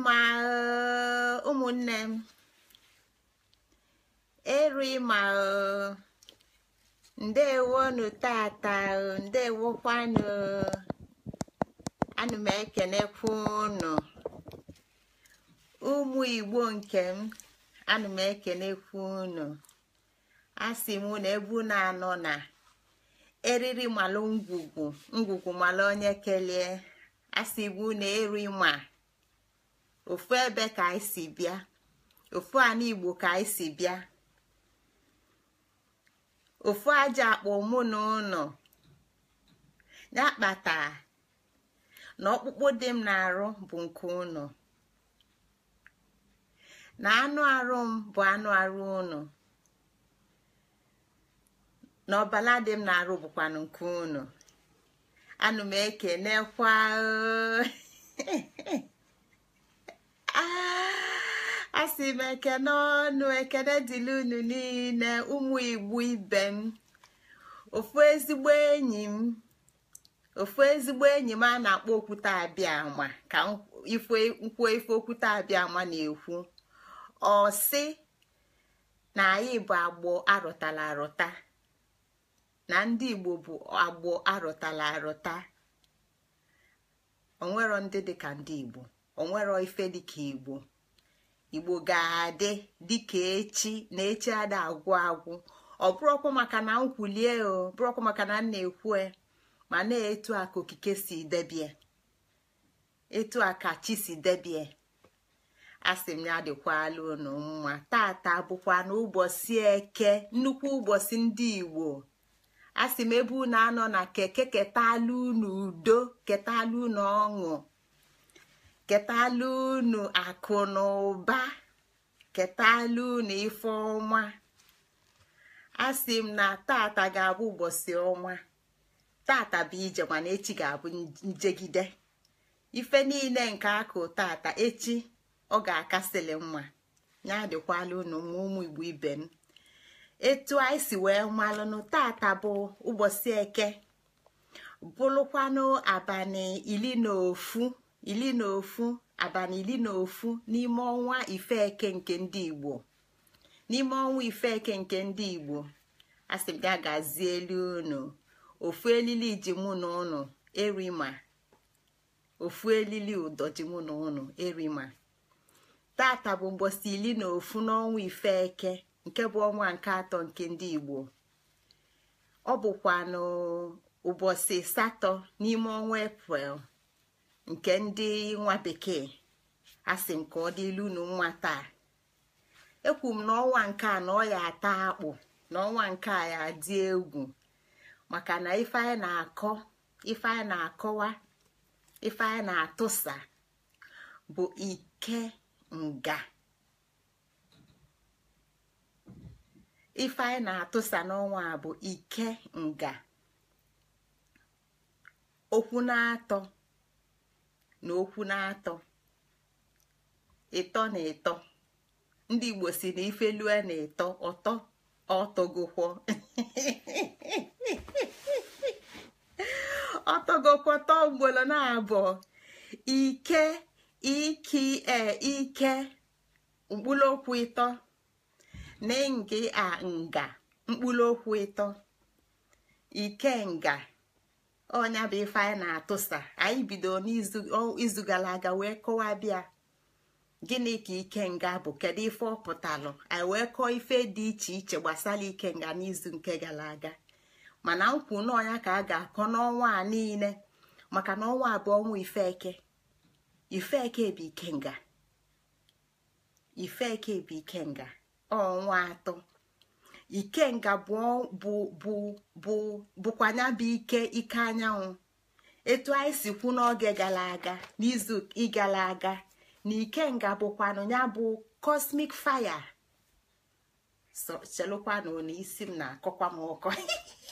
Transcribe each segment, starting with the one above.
ịma eh, ụmụnne m eru ịma eh, ndewonu tata eh, ndewokwanụ ana m ekenekwu unu ụmụ igbo nke m ana m ekenekwu unu a m na ebu na-anọ na eriri malụ ngwugwu ngwugwu malụ onye kelee a na ịma ofu ebe ka anyị si bịa ofu ana igbo ka anyị si bịa ofu aja akpọ mụ na ụnọ ya kpata na ọkpụkpụ dị m na-arụ bụ nke ụnọ na anụ arụ m bụ anụ arụ ụnọ na ọbala dị m na-arụ bụkwanụ nke ụnọ anụ m ekenekwa asị ah, m ekene ọnụ ekene dịla unu niile ụmụ igbo ibe m ofu ezigbo enyi m a na-akpọ okwute abịa ama ka nkwuo ife okwute abịa ama na-ekwu ọ sị na anyị bụ agbọ arụtala arụta na ndị igbo bụ agbọ arụtala arụta onwero ndị dị ka ndị igbo onwero ife dịka igbo igbo ga-adị dịka echi na echi ada agwụ agwụ ọ bụrụkwa maka na nkwulie o bụrụkwa maka na m na ekwu ma na-etu aka okike si debie etu aka chi si debie sị m ya dịkwala unu mma tata bụkwa ụbọchị eke nnukwu ụbọchị ndị igbo asị m ebe unu anọ na keke ketalụ unu udo ketalụ unu ọṅụ ketala unu akụ na ụba ketala unu ife ọma asị m na tata ga-abụ ụbọchị ọnwa tata bụ ije mana echi ga-abụ njegide ife niile nke akụ tata echi ọ ga akasili mma ya dịkwala unu ma ụmụ igbo ibe m etu anyị si wee malụnụ tata bụ ụbọchị eke bụrụkwanụ abalị iri na ofu ili na ofu abalị ili na ofu n'ime ọnwa ifeke nke ndị igbo n'ime ọnwa ifeke nke ndị igbo asị ga gazie elu unu ofu elili ji mụ na ụnụ erima ofu elili ụdọ ji na ụnụ erima tata bụ mgbọsi ili na ofu n'ọnwa ifeke nke bụ ọnwa nke atọ nke ndị igbo ọ bụkwa n'ụbọchị satọ n'ime ọnwa eprel nke ndị nwa bekee a sị nke ọ dịlu unu nwa taa ekwu m n'ọnwa nke a na ọ ya ata akpụ n'ọnwa nke a ya dị egwu maka na ife a na-akọ ife na-akọwa ife a na-atụsa bụ ike nga bụ ike nga okwu na-atọ N'okwu na-atọ ịtọ na ịtọ ndị igbo si na ife lue na ịtọ ọtọ ọtọgụkwọ ọtọgokwọ tọọ na abụọ ike iki e ike okwu ịtọ na nga a nga okwu ịtọ ikenga ọnya bụ ife anyị na-atụsa anyị bido n'izu gara aga wee kọwa bịa gịnị ka ike nga bụ kedu ife ọ pụtalụ anyị wee kọọ ife dị iche iche gbasara ike nga n'izu nke gara aga mana nkwu n'ọnya ka a ga-akọ n'ọnwa a niile maka na ọnwa abụọ ọnwa ifeke ifeke bụ ifeke bụ ọnwa atọ ikenga bụkwa ya bụ ike ike anyanwụ etu anyị si kwu n'oge gara aga n'izu gara aga na ikenga bụkwanụ ya bụ cosmic fire so chelụkwanụ na isi m na-akọkwa m ọkọ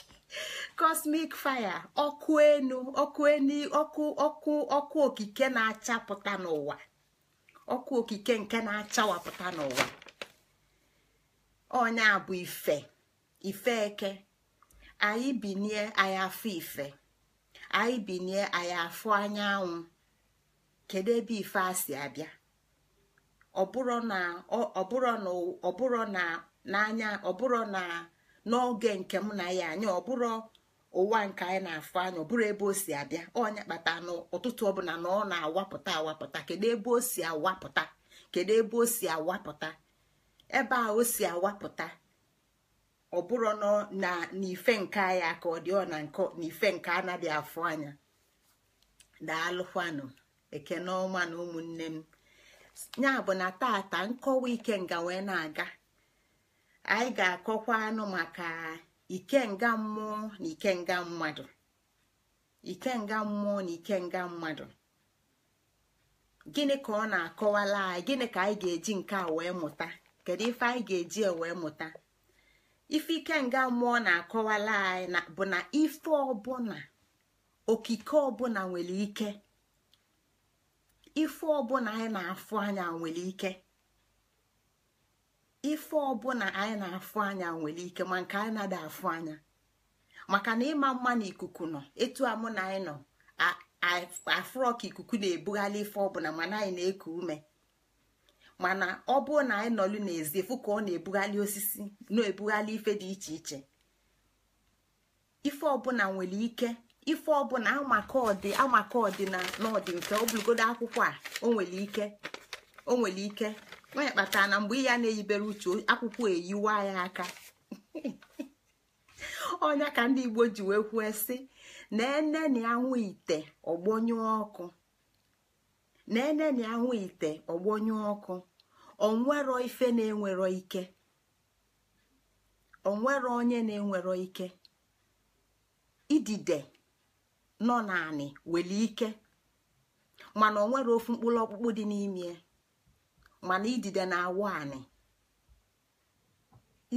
cosmic fire ọkụ enu ọkụ enu ọkụ ọkụ ọkụ okike na-achapụta n'ụwa ọkụ okike nke na-achawapụta n'ụwa onye abụ ife ife eke anyị binie anyị afọ ife anyị binie anyị afọ anyanwụ kedu ebe ife a si abịa ọbụrụ na ọbụrụ na ọbụrụ na n'oge nke m na ya anya ọbụrụ ụwa nke anyị na-afụ anya ọbụrụ ebe o si abịa onye kpata na ụtụtụ ọbụla na ọ na-awapụta awapụta kedu ebe o si awapụta kedu ebe o si awapụta ebe a o si awapụta ọ na n'ife nke ya ka ọ dị ọ na nkọ n'ife nke anaghị afọ anya daalụkwanụ ekene ọma na ụmụnne m ya bụ na tata nkọwa ikenga wee na-aga anyị ga-akọkwa anụ maka ikenga mmụọ na ikenga mmadụ ikenga mmụọ na ikenga mmadụ gịnị ka ọ na-akọwala anyị gịnị ka anyị ga-eji nke a wee mụta kedu ife anyị ga-eji wee mụta ife ike nga mmụọ na-akọwala anyị bụ na ife ọbụla okike ọbụla nwere ike ife ọbụla anyị na-afụ anya nwere ike ife ọbụla anyị na-afụ anya nwere ike ma nke anyị na-ada afụ anya maka na ịma mma na ikuku nọ etu a mụ na anyị nọ afụrọ ka ikuku na-ebugharị ife ọbụla mana anyị na-eku ume mana ọ bụrụ na anyị nọlụ n'ezi fụ ka ọ na-ebughalị osisi na-ebughalị ife dị iche iche ife ọbụla nwere ike ife ọbụla amakọdị ọdị amaka ọdị na n'ọdị obulugodo akwụkwọ a nwere ike Onwere ike onye kpatara na mgbe ya na-eyibere uche akwụkwọ eyiwa ya aka ọnya ka ndị Igbo ji wee kwue sị na ene na anwụ ite ọgbọnyụ ọkụ na ene na anwụ ite ọgbọnyụ ọkụ onwero ife na-enwero ike onwero onye na-enwero ike idide nọ naanị nwere ike mana onwere ofu mkpụrụ ọkpụkpụ dị n'ime mana idide na-awụ anị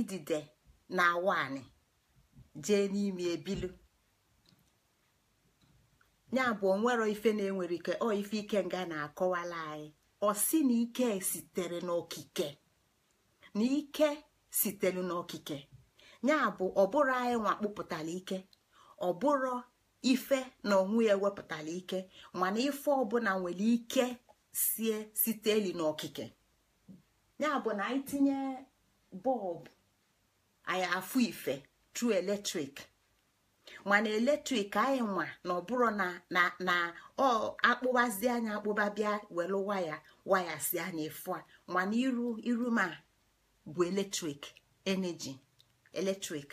idide na-awụ anị n'ime ebilu ya bụ onwero ife na-enwere ike ọ ife ike nga na-akọwala anyị osi na ike sitere n'okike na ike sitere n'okike ya bụ ọbụrụ anyị nwa kpụpụtara ike ọbụrụ ife na onwe ya ewepụtara ike mana ife ọbụla nwere ike sie site n'okike ya bụ na anyị bọlbụ anyị afụ ife tru eletrik mana eletrik anyị nwa na ọbụrụ na na akpụbazi anya akpụba bịa welu waya Waya na efu a mana iru iru ma bụ eletrik eneji eletrik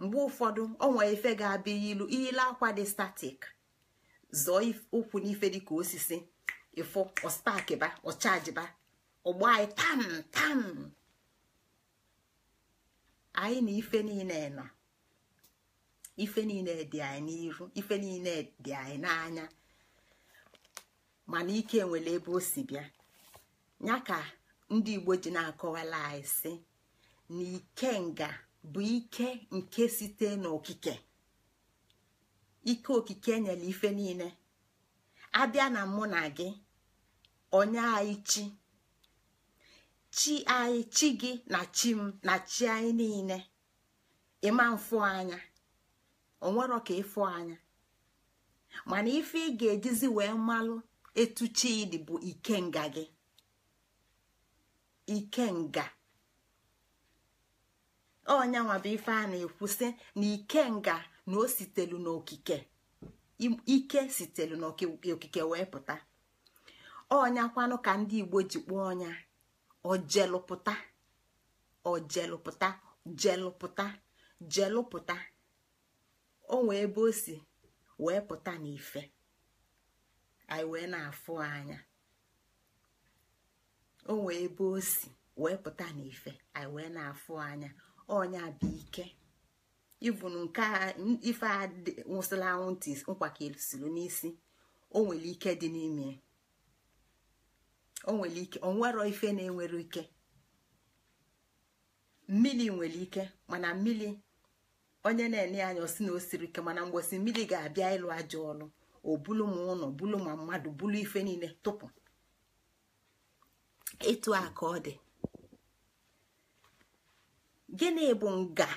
mgbe ụfọdụ onwe ife ga-abịa ilu ile akwa dị statik zọọ ụkwụ n'ife dịka osisi ịfụ ọstakiba ba. ọgbọ anyị tam tam anyị na ife niile nọ ife niile dị anyị n'iru ife niile dị anyị n'anya mana ike nwere ebe o si bịa ya ka ndị igbo ji na-akọwala anyị si na ike nga bụ ike nke site n'okike ike okike nyere ife niile abịa na mụ na gị onye anyị chi chi anyị chi gị na chi m na chi anyị niile ịma mfụ anya onwero ka ịfụ anya mana ife ị ga-ejizi wee malụ etuchi ịdị bụ ikenga gị ikenga onya bụ ife a na-ekwusị na ikenga na o sitelu n'okike ike sitelu n'okike wee pụta ọnyakwanụ ka ndị igbo ji kpọọ ọnya ojelụpụta ojelụpụta jelụpụta jelụpụta onwe ebe o si wee pụta n'ife anyị wee na-afụ anya o wee ebe o si wee pụta n'ife anyị wee na-afụ anya ọnya bụ ike ịbụ nke ife a nwụsịla anwụ ntị nkwakesiri n'isi o nwere ike dị n'ime o nwere ike o ife na-enwere ike mmiri nwere ike mana mmiri onye na-enye anya osi na o siri ike mana mgbosi mmiri ga-abịa ịlụ ajọ ọlụ obulu m ma ụlọ bulu ma mmadụ bulu ife niile tụpụ ịtụ a ọ dị gịnị bụ nga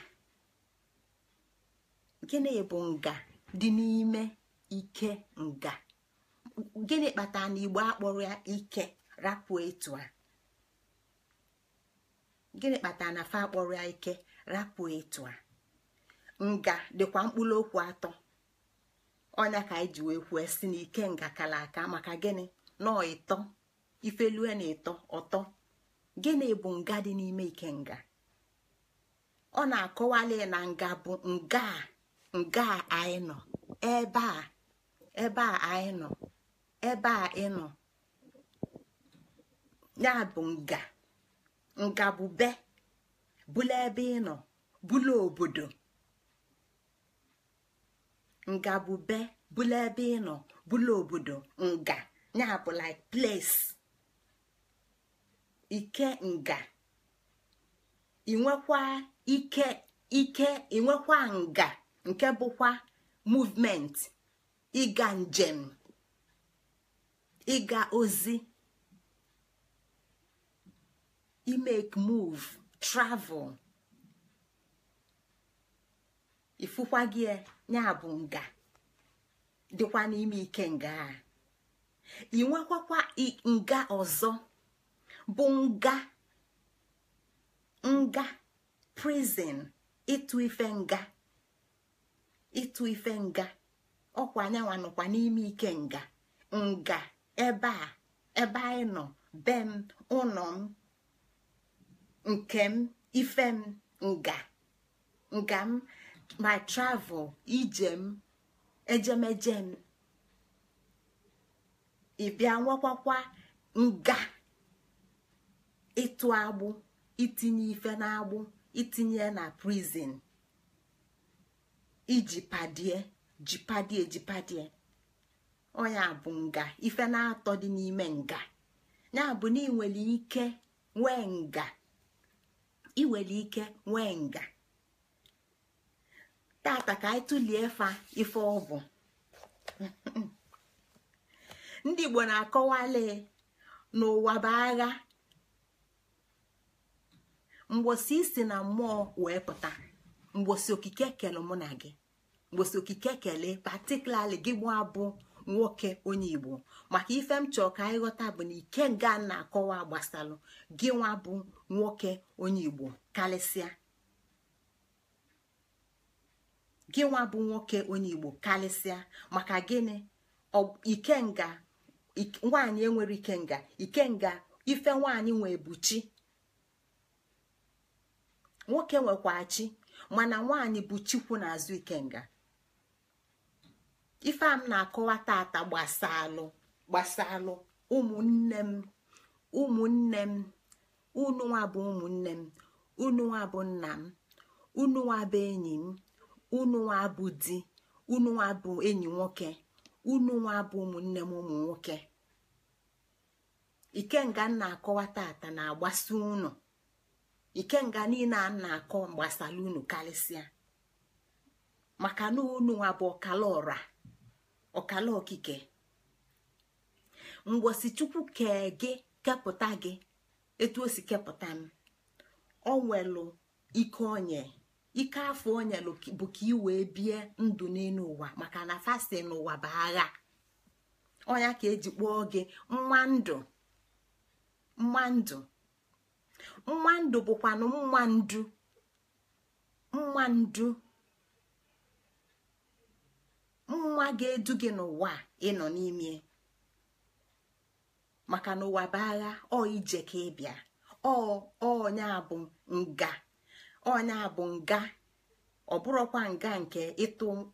gịnị bụ nga dị n'ime ike nga gịnị kpatara na igbo akpọrọ ya ike rapụ etu a gịnị kpatara na fa akpọrọ ya ike rapụ etu a nga dịkwa mkpụrụ okwu atọ ọnya ka anyị ji wee kwuo si na ike kala aka maka gịnị nọọ ịtọ ifelue na ịtọ ọtọ gịnị bụ nga dị n'ime ike nga ọ na-akọwali na nga bụ nga nga anyị nọ ebe a ebe a anyị nọ ebe a ị nọ ya bụ nga nga bụ be bụla ebe ị nọ bụla obodo nga bụ be bụla ebe ị nọ bụla obodo nga ya bụ like place ike nga ike ike inwekwa nga nke bụkwa movement ịga njem ịga ozi imake move travel ifụkwa gị e, ya bụ nga dịkwa n'ime ike nga a ị nwekwakwa nga ọzọ bụ nga nga prison ịtụ ife nga ịtụ ife nga ọkwa anyanwa nọkwa n'ime ike nga nga ebe a ebe anyị nọ be m ụlọ m nke m ife m nga nga m my travel ijem ejemeje m ịbịa nwekwakwa nga ịtụ agbụ itinye ife n'agbụ itinye na prison iji padie jipadie jipadie onye bụ nga ife na-atọ dị n'ime nga ya bụ na ị ike nwee nga ị ike nwee nga tata ka anyị tụlie fa ife ndị igbo na-akọwali n'ụwa bụ agha mgbosi isi na mmụọ wee pụta mgbosi okike kele mụ na gị mgbosi okike kele patikulali gị abụọ nwoke onye igbo maka ife m chọrọ ka anyị ghọta bụ na ike nga na-akọwa gbasalụ gị nwa nwoke onye igbo karịsịa gị nwa bụ nwoke onye igbo karịsịa maka gịnị ikenga nwaanyị enwere ikenga ikenga ife nwaanyị nwee bụ chi nwoke nwekwa chi mana nwaanyị bụ chikwu n'azụ ikenga ife a m na-akọwa tata gbasalụ gbasalụ ụmụnne m ụmụnne m unu nwa bụ ụmụnne m unu nwa bụ nna m unu nwa bụ enyi m ụnụnwa bụ di ụnụnwa bụ enyi nwoke unu bụ ụmụnne m ụmụ nwoke ikenga na-akọwa tata na-agbasi unu ikenga niile a na-akọ gbasara unu karịsịa maka na ụnụnwa bụ ọkala ọra ọkala okike mgbosi chukwu kee gị kepụta gị etu o si kepụta m ọ nwelu ike onye ike afọ onye bụ ka ị wee bie ndụ n'elu ụwa maka na fasti n'ụwa bụ agha ọnya ka eji kpọọ gị nwa ndụ nwa ndụ nwa ndụ bụkwanụ nwa ndụ nwa ndụ nwa ga-edu gị n'ụwa ịnọ n'ime maka na ụwa bụ agha ọ ije ka ịbịa ọ ọnya bụ nga onya bụ nga ọ bụrụkwa nga nke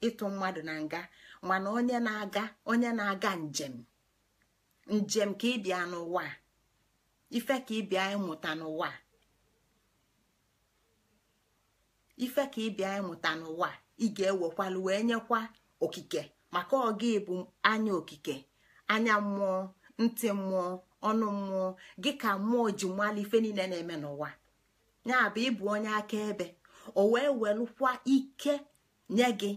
ịtụ mmadụ na nga mana onye na-aga onye na-aga njem njem ka ịbịa n'ụwa ife ka ịbịa ịmụta n'ụwa ife ka ịbịa ịmụta n'ụwa ị ga-ewekwalụ wee nyekwa okike maka ọga ịbụ anya okike anya mmụọ ntị mmụọ ọnụ mmụọ gị ka mmụọ ji mmalụ ife niile na-eme n'ụwa ya bụ ịbụ onye akaebe o wee welụkwa ike nye gị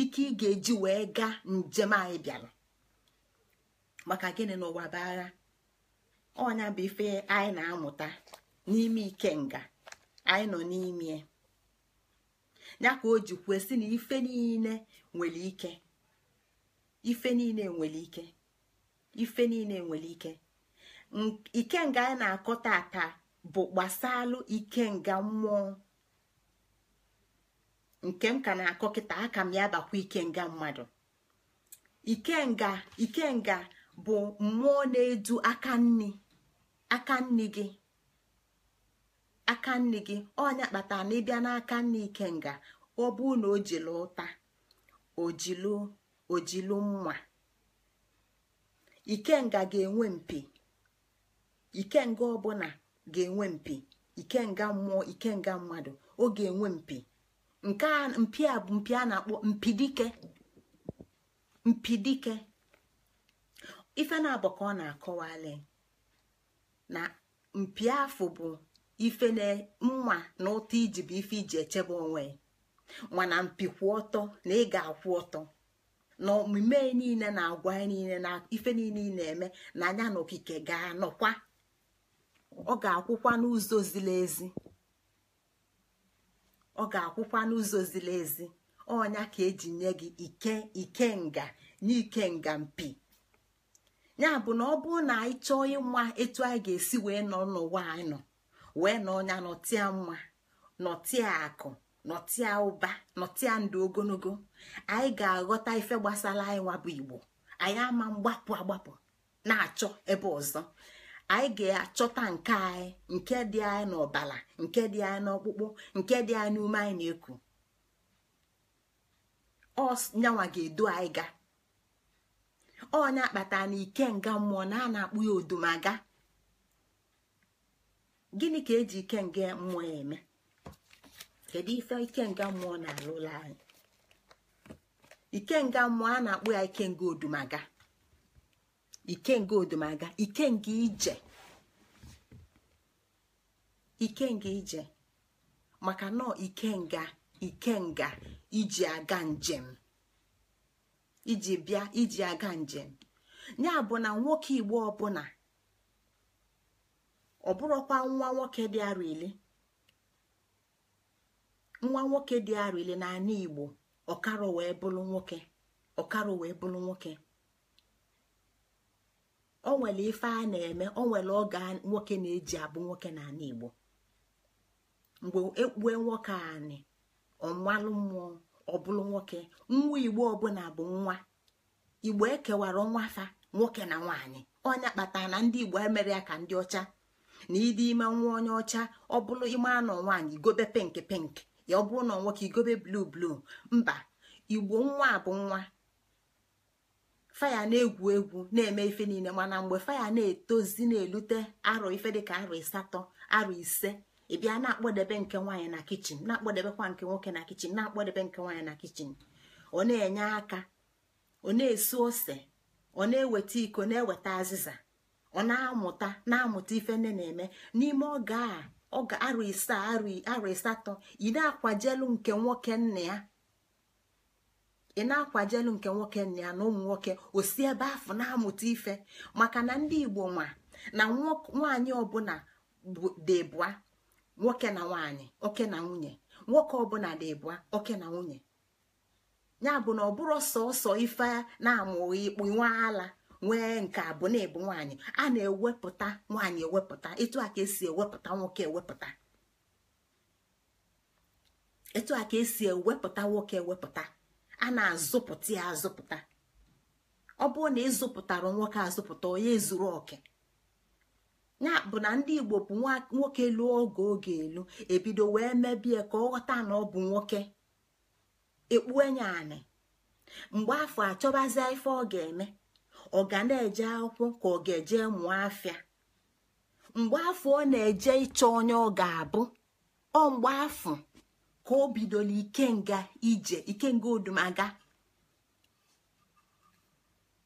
ike ị ga-eji wee gaa njem anyị bịara maka gịnị n'ụwa bụ agha ọnya bụ ife anyị na-amụta n'ime ike nga anyị nọ n'ime ya ka o ji kwesị na ife niile nwere ike ife niile nwere ike ife niile nwere ike ike nga anyị na-akọ bụ gbasalụ nga mmụọ nke m ka na-akọ kịta aka m ya bakwa ikenga mmadụ ikenga ikenga bụ mmụọ na-edu aka nni aka nni gị aka nni gị ọnya kpatara na ịbịa n'aka ike ikenga ọ bụ na o jilu ụta ojilu mma ikenga ga-enwe mpi ikenga ọbụla ga-enwe mpi ikenga mmụọ ikenga mmadụ ọ ga-enwe mpi nke a mpi a bụ mpi a na-akpọ mpidike mpidike ife na-abụ ka ọ na-akọwali na mpi afọ bụ ife na mma na ụtọ iji bụ ife iji echebe onwe mana mpi kwụ ọtọ na ị ga-akwụ ọtọ na omume niile na agwa niile na ife niile na-eme na anya na okike ga-anọkwa ọ ga-akwụkwa n'ụzọ ziri ezi ọ ga-akwụkwa n'ụzọ ziri ezi ọnya ka eji nye gị ike ike nga nye ikenga mpi ya bụ na ọ bụrụ na anyị chọọ ịma etu anyị ga-esi wee nọ n'ụwa anyị nọ wee nọ ọnya nọtịa mma nọtịa akụ nọtịa ụba nọtịa ndụ ogologo anyị ga-aghọta ife gbasara anyị nwa bụ igbo anyị ama mgbapụ agbapụ na-achọ ebe ọzọ anyị ga-achọta nke anyị nke dị anyị n'ọbala nke dị anyị n'ọkpụkpụ nke dị anyị n'ume anyị na-eku ọnyanwa ga-edu anyị ga ọnya akpata na ike nga mmụọ na a na-akpụ ya odumaga gịnị ka eji ike nga mmụọ ya eme kedu ife ike nga mmụọ na-alụla anyị ike nga mmụọ a na-akpụ ya ike nga odumaga ikenga odomaga ikenga ije ikenga ije maka nọ ike nga iji aga njem iji bịa iji aga njem ya bụ na nwoke igbo ọbụla ọ bụrụkwa nwa nwoke dị arọ ile nwa nwoke dị arọ ile na ala igbo ọkara wee bụrụ nwoke ọkara wee bụrụ nwoke o nwere ife a na-eme o nwere oge nwoke na-eji abụ nwoke na n'ala igbo mgbe ekpue nwoke anị ọnwalụ mmụọ ọbụlụ nwoke nwa igbo ọbụla bụ nwa igbo ekewara nwafa nwoke na nwaanyị ọnya kpatara na ndị igbo emere ya ka ndị ọcha na ịdị ime nwa onye ọcha ọ bụrụ ime anọ nwaanyị igobe pink pink ya ọ bụrụ na nwoke igobe blu blu mba igbo nwa bụ nwa faya na-egwu egwu na-eme ife niile mana mgbe faya na-etozi na-elute arọ ife dịka arọ asatọ arụ ise ịbịa na-akpọdebe nke nwaanyị na kichin na-akpọdebekwa nke nwoke na kichin na-akpọdebe nke nwaanyị na kichin ọ na-enye aka ọ na ose ọ na-eweta iko na-eweta azịza ọ na-amụta na-amụta ife nne na-eme n'ime oge a arụ ise arụ asatọ ị na-akwajelu nke nwoke nna ya ị na-akwajelu nke nwoke nna ya na ụmụ nwoke osi ebe afọ na-amụta ife maka na ndị igbo nwa na nwanyị ọbụla bụa, nwoke na nwanyị, oke na nwunye nwoke ọbụla bụa, oke na nwunye ya bụ na ọ bụrụ sọsọ ife na amụ ikpu nwa ala nwee nke abụ na ebu nwaanyị a na-ewepụta nwaanyị ewepụta etu a ka esi ewepụta nwoke ewepụta etu a ka esi ewepụta nwoke ewepụta a na-azụpụta ya azụpụta ọ bụrụ na ịzụpụtara nwoke azụpụta onye zuru oke ya bụ na ndị igbo bụ nwoke lụọ oge oge elu ebido wee mebie ka ọ ghọta na ọ bụ nwoke ekpue nya anị mgbe afọ achọbazie ife ọ ga-eme ọ ga na-eje akwụkwọ ka ọ ga-eje mụọ afịa mgbe afọ ọ na-eje ịchọ onye ọ ga-abụ ọ mgbe afọ ka o bidola ikenga ije ikenga odumaga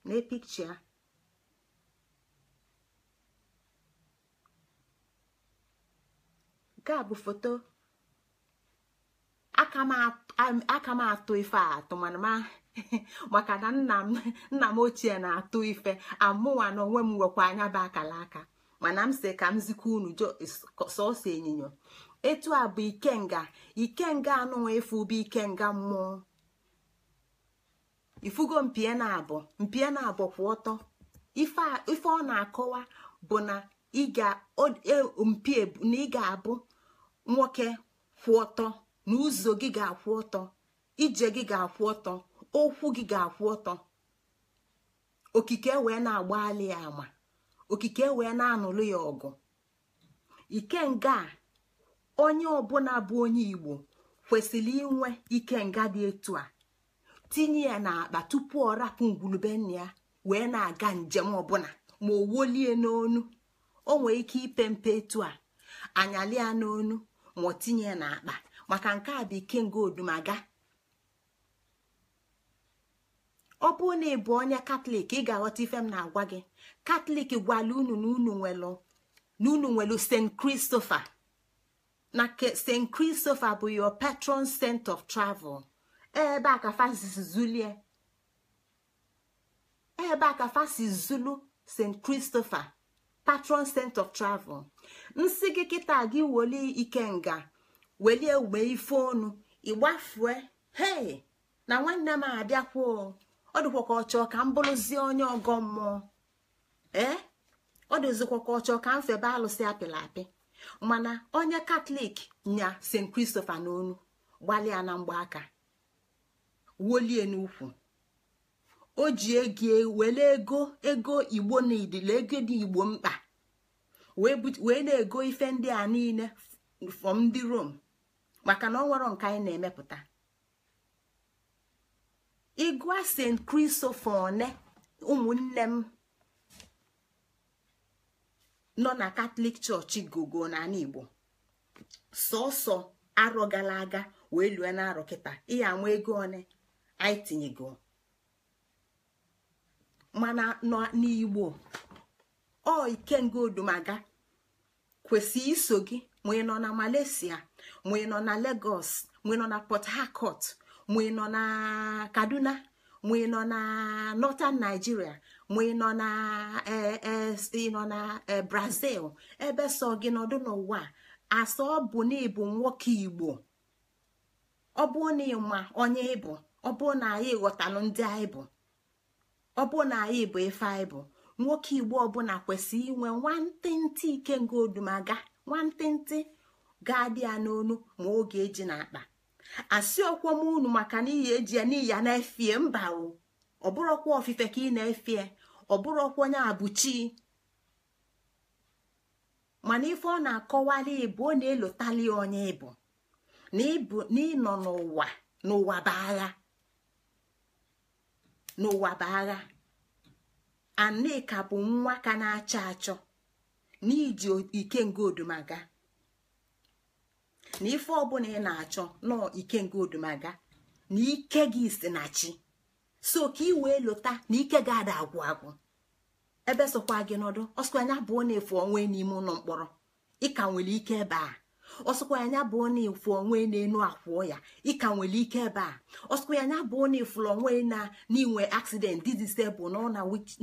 n'epikcha nke a bụ foto aka m atụ ife atụ maka na nna m ochie na-atụ ife amụwa na onwe m nwekwa anya bụ akala aka mana m si ka m zikwa unu sọsọ ịnyịnya etu a bụ ikenga ikenga anụnwa efu bụ ikenga mmụọ ifugo mpie na abụ mpie na abụ kwụ ọtọ ife ọ na-akọwa bụ na ị ga-mpie e, na ị ga-abụ nwoke kwụ ọtọ na ụzọ gị ga-akwụ ọtọ ije gị ga-akwụ ọtọ okwu gị ga-akwụ ọtọ okike wee na-agbali ya ama okike wee na-anụlụ ya ọgụ ikenga a onye ọbụla bụ onye igbo kwesịrị inwe ike nga dị etu a tinye ya n'akpa tupu ọ rapụ ngwulube nna ya wee na-aga njem ọbụla ma o wolie n'onu o nwee ike ipe mpe etu a ya n'onu ma ọ tinye ya n'akpa maka nke a bụ ikenga odumaga ọ bụrụ na ị onye katọlik ị ga-aghọta ife m na-agwa gị katọlik gwala unu na unu nwelu st christopher na st christopher bụ your patron saint of travel ebe eh, a ka fasi zulie ebe a zulu eh, st christopher patron saint of travel nsị gị kịta gị weli ikenga welie uwe ife onu ịgbafue hei na nwanne m abịakwuo ọ dịkwa ka ọchọ eh? ka m bụrụzie onye ọgọ mmụọ ee ọ dịzikwa ka ọchọ ka m febe alụsị apịla apị mana onye katọlik nya st kristofa n'onu gbalịa na mgbaaka wolie n'ukwu o ji ego e, were ego igbo na idile ego dị igbo mkpa wee na-ego ife ndị a niile fọm ndị rom maka na ọ nwere nke anyị na-emepụta ịgụa st christopher one ụmụnne m nọ na katọlik chọọchị gogo n'ala igbo sọsọ arọ gara aga wee lue na arọ kịta ihe ama ego one anyị tinyego mana nọ n'igbo ọ ike ikenga odumaga kwesị iso gị ma ị nọ na Malaysia ma ị nọ na Lagos ma ị nọ na Port Harcourt ma ị nọ na Kaduna ma na Northern Nigeria ma ịnọ na e, e, ịnọ na e, brazil ebe sọ gị nọdụ n'ụwa asọ bụ na ịbụ nwoke igbo ọ bụ na ịma onye ịbụ ọ bụ na anyị ghọtalụ ndị anyị bụ ọ bụ na anyị bụ ife anyị bụ nwoke igbo ọbụla kwesịrị inwe nwantịntị ikenga odumaga nwantịntị ga-adị ya n'onu ma oge eji na akpa asị ọkwọm unu maka na iyi eji ya n'iyi ya na-efie mba o ọ bụrụkwa ofufe ka ị na-efe ọ bụrụkwa onye abụchi mana ife ọ na-akọwali ịbụ ọ na-elotali onye ịbụ na ịnọ n'ụwa n'ụwa bụ agha n'ụwa bụ agha aneka bụ nwa ka na-achọ achọ n'iji ike nga odumaga na ife ọbụla ị na-achọ nọọ ike nga odumaga na ike gị si na chi so ka i wee lota na ike ga-ada agwụ agwụ ebe sokwa gị nọdụ ọsụkwa anya bụ na efu onwe n'ime ụlọ mkpọrọ ịka nwere ike ebe a ọsụkwa anya bụ na efu onwe na-enu akwụọ ya ịka nwere ike ebe a ọsụkwa anya bụ na ifuru onwe na n'inwe accident didisebụl nọ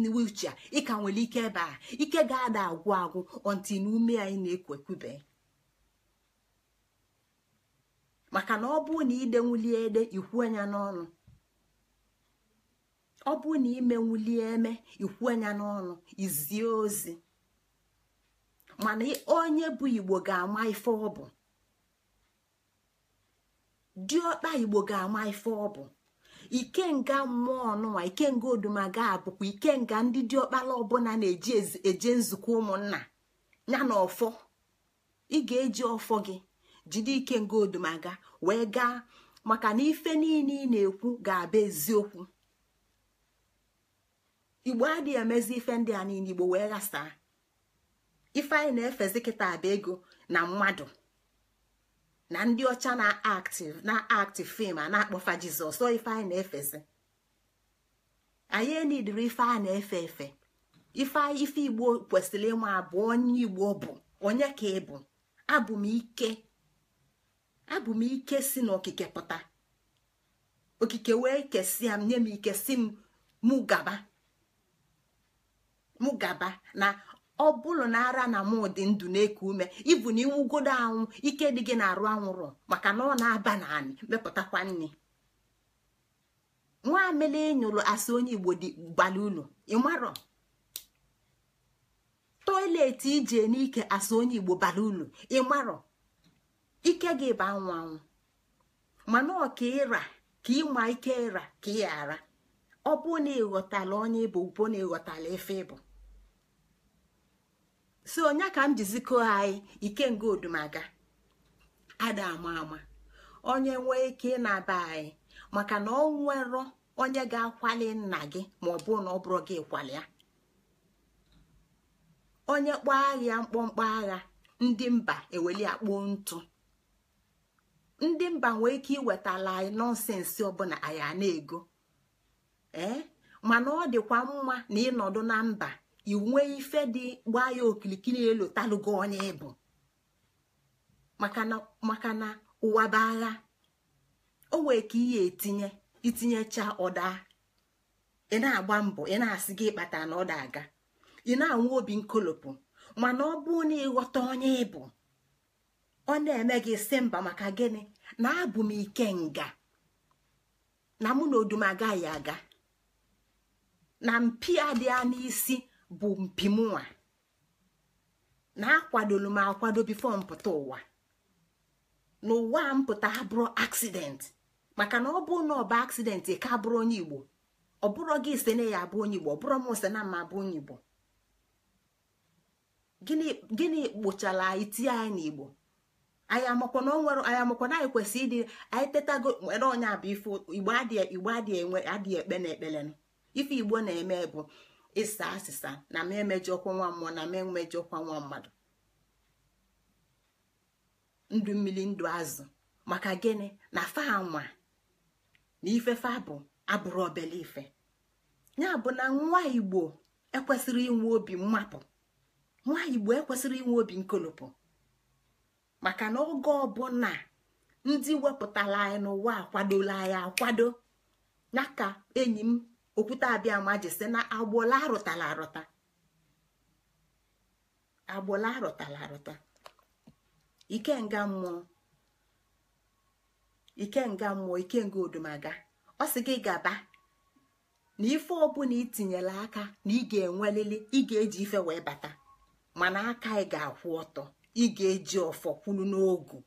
na wheelchair ịka nwere ike ebe a ike ga-ada agwụ agwụ ọnti na ume anyị na-ekwekwube maka na ọ bụ na ide ede ikwuo anya n'ọnụ ọ bụrụ na imenwulie eme ikwu anya n'ọnụ izie ozi mana onye bụ igbo ga-ama ife ọ bụ diọkpa igbo ga-ama ife ọ bụ ikenga mmụọ ọnụnwa ikenga odumaga abụkwa ikenga ndị diọkpala ọbụla na-eji eje nzukọ ụmụnna ya na ọfọ ị ga-eji ọfọ gị jide ikenga odumaga wee gaa maka na ife niile ị na-ekwu ga-abụ eziokwu igbo adịghị emezi ife ndị a niile igbo wee ghasaa ife anyị na-efezi kịta abụ ego na mmadụ na ndị ọcha na-aktị na-aktị fim a na-akpọfa jizọs ọ ife anyị na-efezi anyị enidiri ife a na-efe efe ife ife igbo kwesịrị ịma abụ onye igbo bụ onye ka ị bụ abụ m ike abụ m ike si n'okike pụta okike wee kesia m nye m ike si m mụ gaba mụ gaba na ọ bụrụ na ara na mụ dị ndụ na-eku ume ibu na iwugodo anwụ ike dị gị na-arụ anwụrụ maka na ọ na-aba na anị mepụtakwa nri nwa amele nyụrụ asị onye igbo dị gbali ụlọ ịmarọ toileti ije n'ike asị onye igbo bara ụlọ ịmarọ ike gị ba anwụ anwụ mana ọka ịra ka ịma ike ịra ka ị ghara ọ bụ na ịghọtala onye ịbụ bụ na ịghọtala ife ịbụ so onye ka m jizikọ anyị ikenga odumaga ada ama ama onye nwee ike ị na-aba anyị maka na ọ nwerọ onye ga-akwali nna gị ma ọ bụrụ na ọ bụrụ gị ya onye kpọọ agha mkpọmkpọ agha ndị mba eweli akpụ ntụ ndị mba nwee ike iwetala anyị nọnsensị ọbụla anyị a na-ego ee mana ọ dịkwa mma na ịnọdụ na mba inwe ife dị gbaa ya okirikiri elu talụgo onye ịbụ maka na ụwa bụ agha o wee ka ihe etinye itinyecha ọda ị na-agba mbọ ị na-asị gị ịkpata na ọda aga ị na anwụ obi nkolopụ mana ọ bụ na ịghọta onye ịbụ ọ na-eme gị si mba maka gịnị na abụ m ike nga na mụ na odum agaghị aga na mpi adịa n'isi bụ mpimụwa na akwadolu m akwado bifo mpụta ụwa n'ụwa mpụta abụrụ aksidenti maka na ọ bụ na ọba bụ ka abụrụ onye igbo ọ bụrụ gị ise na ya abụ onye igbo ọ bụrụ m ise na m abụ onye igbo gịnị kpochara anyị tie anyị n'igbo anyị na anyị amakwa kwesịrị ịdị anyị tetago nwere onye abụ ifo igbo adịghị adịghị ekpe na ekpele ife igbo na-eme bụ ịsa asịsa na m ọkwa nwa mmụọ na m ọkwa nwa mmadụ ndụ mmiri ndụ azụ maka gịnị na fa na ifefe abụ abụrụ obele ife ya bụ na nwa igbo ekwesịrị inwe obi mmapụ nwa igbo ekwesịrị inwe obi nkolopụ maka na oge ọbụla ndị wepụtara anyị n'ụwa akwadola anyị akwado ya enyi m okwute abịama ji si na agbụla arụtala arụta agbụla arụtala arụta ikenga mmụọ ikenga mmụọ ikenga odumaga ọ sị gị gaba na ife ọbụla itinyela aka na ị ga-enwelili ị ga-eji ife wee bata mana aka ị ga-akwụ ọtọ ị ga-eji ọfọ kwulu n'ogu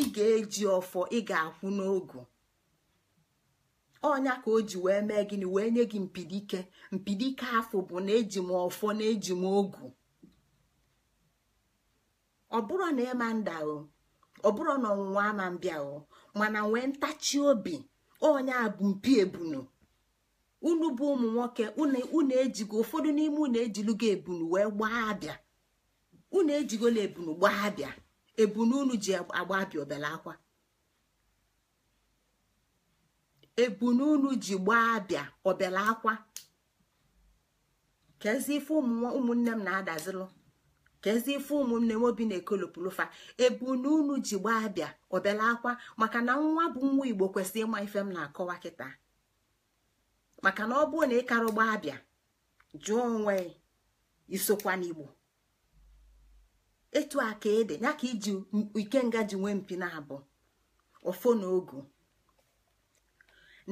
ị ga-eji ọfọ ị ga-akwụ n'ogu ọnya ka o ji wee mee gịnị wee nye gị mpidike mpidike afọ bụ na eji m ọfọ na eji m ogu ọ bụrụ na ịma nda o ọ bụrụ na ọnwụnwa ama mbịa o mana nwee ntachi obi ọnya bụ mpi ebunu unu bụ ụmụ nwoke unu ejigo ụfọdụ n'ime unu ejilugo ebunu wee gbaa abịa unu ejigola ebunu gbaa abịa ebunu unu ji agba abịa obele akwa ebununu ji gbaa abịa ọbịala akwa kezi ife ụmụnne m na-adazilụ kezi ife ụmụnne m obi na-ekolopụlụfa ebununu ji gbaa abịa ọbịala akwa maka na nwa bụ nwa igbo kwesịrị ịma ife m na-akọwa kịta maka na ọ bụrụ na ị karụ gbaa abịa jụọ onwe isokwa n'igbo etu aka ede ya ka iji nga ji nwee mpi na abụ ofo na ogu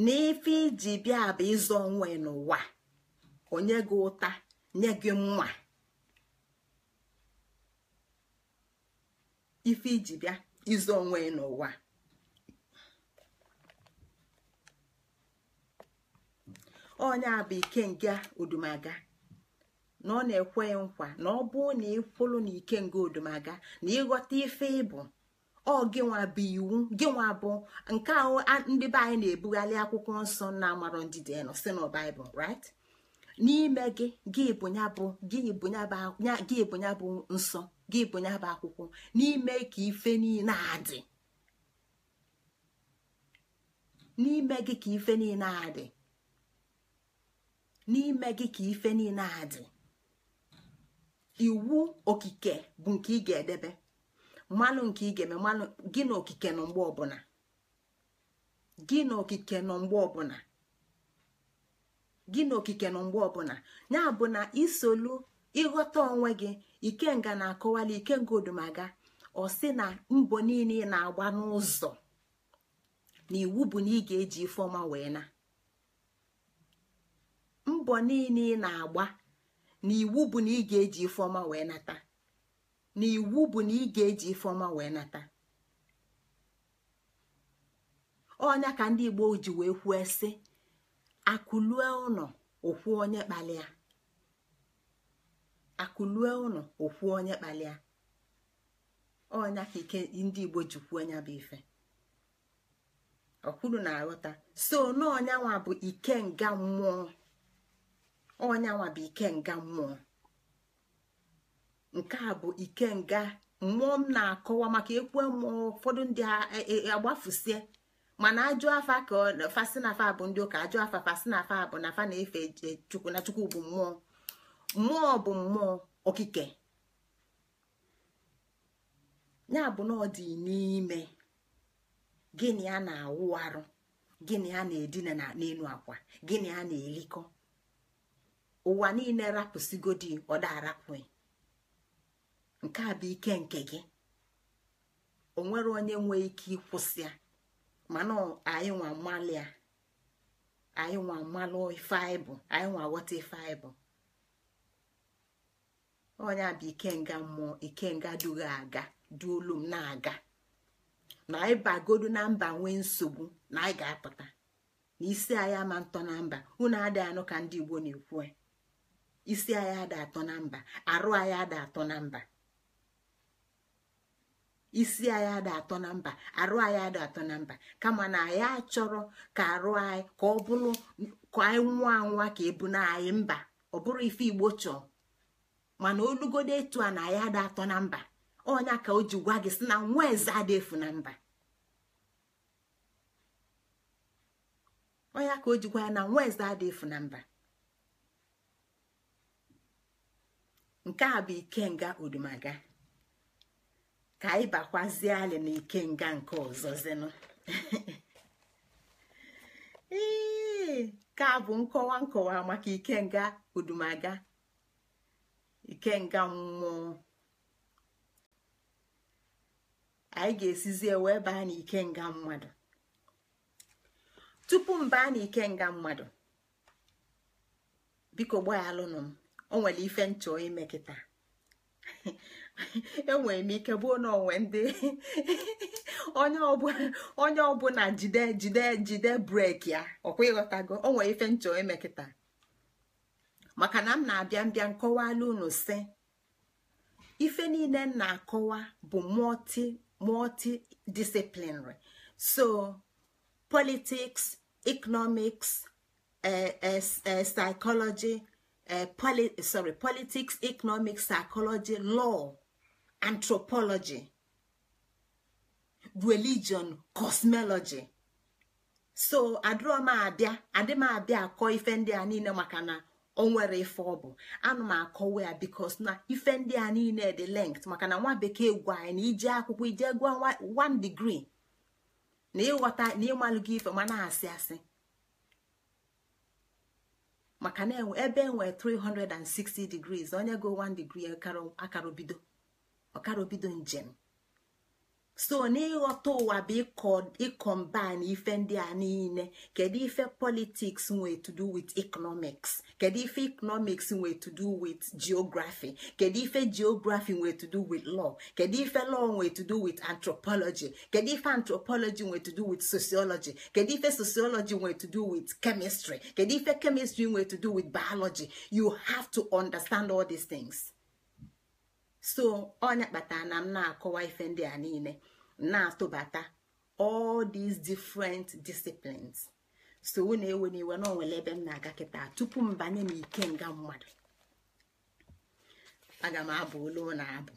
n'ife ife iji bịa bụ ịzụ onwe n'ụwa onye gị ụta nye gị mma ife iji bịa ịzụ onwe n'ụwa onye a bụ ike odumaga na ọ na-ekwe nkwa na ọ bụrụ na ịkwụlụ na ike odumaga na ịghọta ife ịbụ ọ gịnwa bụ iwu gịnwa bụ nke ahụ ndị be anyị na-ebugharị akwụkwọ nsọ na-amarọ ndidi nọ si na n'ime gị gị bụ ya bụ gị bụ ya bụ nsọ gị bụ ya bụ akwụkwọ n'ime ka ife niile adị n'ime gị ka ife niile adị n'ime gị ka ife niile adị iwu okike bụ nke ị ga-edebe mmanụ nke ị ga-eme mmanụ gị na okike nọ mgbe na okike mgbe ọbụla gị na ya bụ na isolu ịghọta onwe gị ikenga na-akọwali ikenga odumaga ọ sị na mbọ niile ị na-agba n'ụzọ na iwu bụ na ị ga-eji ifeọma wee na mbọ na iwu bụ na ị ga-eji ifeọma wee nata onya ka ndị igbo ji wee kwue sị akụlue ụnọ okwu onye kpalịa akụlue ụnọ okwu onye kpalịa onya ka ike ndị igbo ji kwuo nya bụ ife ọkwuru na-aghọta so n'ọnyanwa bụ ike mmụọ bụ ikenga mmụọ nke a bụ ikenga mmụọ m na-akọwa maka ekwe mmụọ ụfọdụ ndị e, e, e, agbafusie mana ajụ afa ka fasinafa bụ ndị ụka ajụ afa fasinafa bụ na fa na-efe chukwu na chukwu bụ mmụọ mmụọ bụ mmụọ okike ya bụ na ọ dị n'ime gịnị a na-awụ arụ gịnị a na-edina n'elu akwa gịnị a na elikọ ụwa niile rapụsigodi ọda arapụghị nke a bụ ike nke gị o nwere onye nwee ike ịkwụsị ya mana anyị nwa malịa anyị nwa mmalụ ife anyị bụ anyị nwa ghọta ife bụ onye a bụ ikenga mmụọ ikenga dugha aga duolu m na-aga na anyị bagodu na mba nwee nsogbu na anyị ga-apụta na isi anyị ama ntọ na mba unu adịghị anụ ka ndị Igbo na-ekwu e. isi anyị ada atọ na mba arụ anyị ada atọ na mba isi anyị adị atọ na mba arụ anyị adị atọ na mba kama na anyị achọrọ ka arụ anyị ka ọ bụrụ ka anyị nwa anwa ka ebu na anyị mba ọ bụrụ ife igbo chọọ mana olugodo etu a na anyị adị atọ na mba ọnya ka o ji gwa gị si na nwa eze efu na mba ya na nwa eze na mba nke a bụ ikenga odumaga ka anyị bakwazie alị na ikenga nke ọzọ ee ka bụ nkọwa nkọwa maka ikenga udumaga ikenga mmụọ anyị ga esizi wee baa na ikenga mmadụ tupu m baa na ikenga mmadụ biko gbaghalụnụ m o nwere ife nchọ ime kịta enwere m ike bụo na onwe ndị onye ọbụla jide jide jide brek ya ọkwa ịghọtago o nwere ife nchọ emekịta maka na m na-abịa mbịa nkọwala unu si ife niile m na-akọwa bụ multi multi disciplinary so politics economics eh, eh, eh, psychology sorry politics economics psychology law anthropology religion cosmology so m abịa akọ ife ndị a niile maka na ọ nwere ife ọ bụ ana m akọwa ya bikos na ife ndị a niile dị lengt maka na nwa bekee gwa anyị na ije akwụkwọ ije gwa one degree na ịghọta na ịmalụ ife ma asị asị maka na e, ebe enwere 360 degrees onye go 1 degree akara bido ọkara obido njem so n'ịghọta ụwa bụ ịkọmbine ife ndị a niile kedu ife politiks nwee to do with economics kedu ife economics nwee to do with geography kedu ife geography nwee to do with law kedu ife law nwee to do with anthropology kedu ife anthropology nwee to do with sociology kedu ife sociology nwee to do with chemistry kedu ife chemistry nwee to do with biology you have to understand all these things. so onye kpatara na m na-akọwa ife ndị a niile na-atụbata all these different disciplines so unu ewe n'iwe na onwere ebe m na-aga kịta tupu m banye m ike nga mmadụ aga m abụ olu na abụ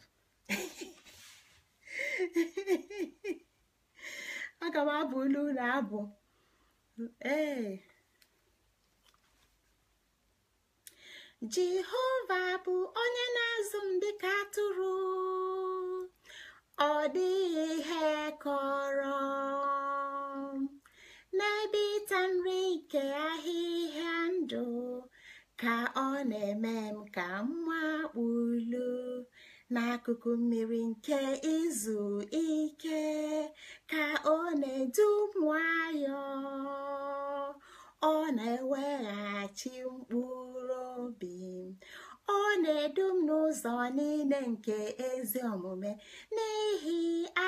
aga m abụ olu na abụ ee jehova bụ onye na-azụ m dịka atụrụ ọ dịghị ihe kọrọ n'ebe ịta nri nke ahịhịa ndụ ka ọ na-eme m ka m wakpulu n'akụkụ mmiri nke izu ike ka ọ na-edu m ọ na-eweghachi mkpụrụ obi ọ na-edu m n'ụzọ niile nke ezi omume n'ihi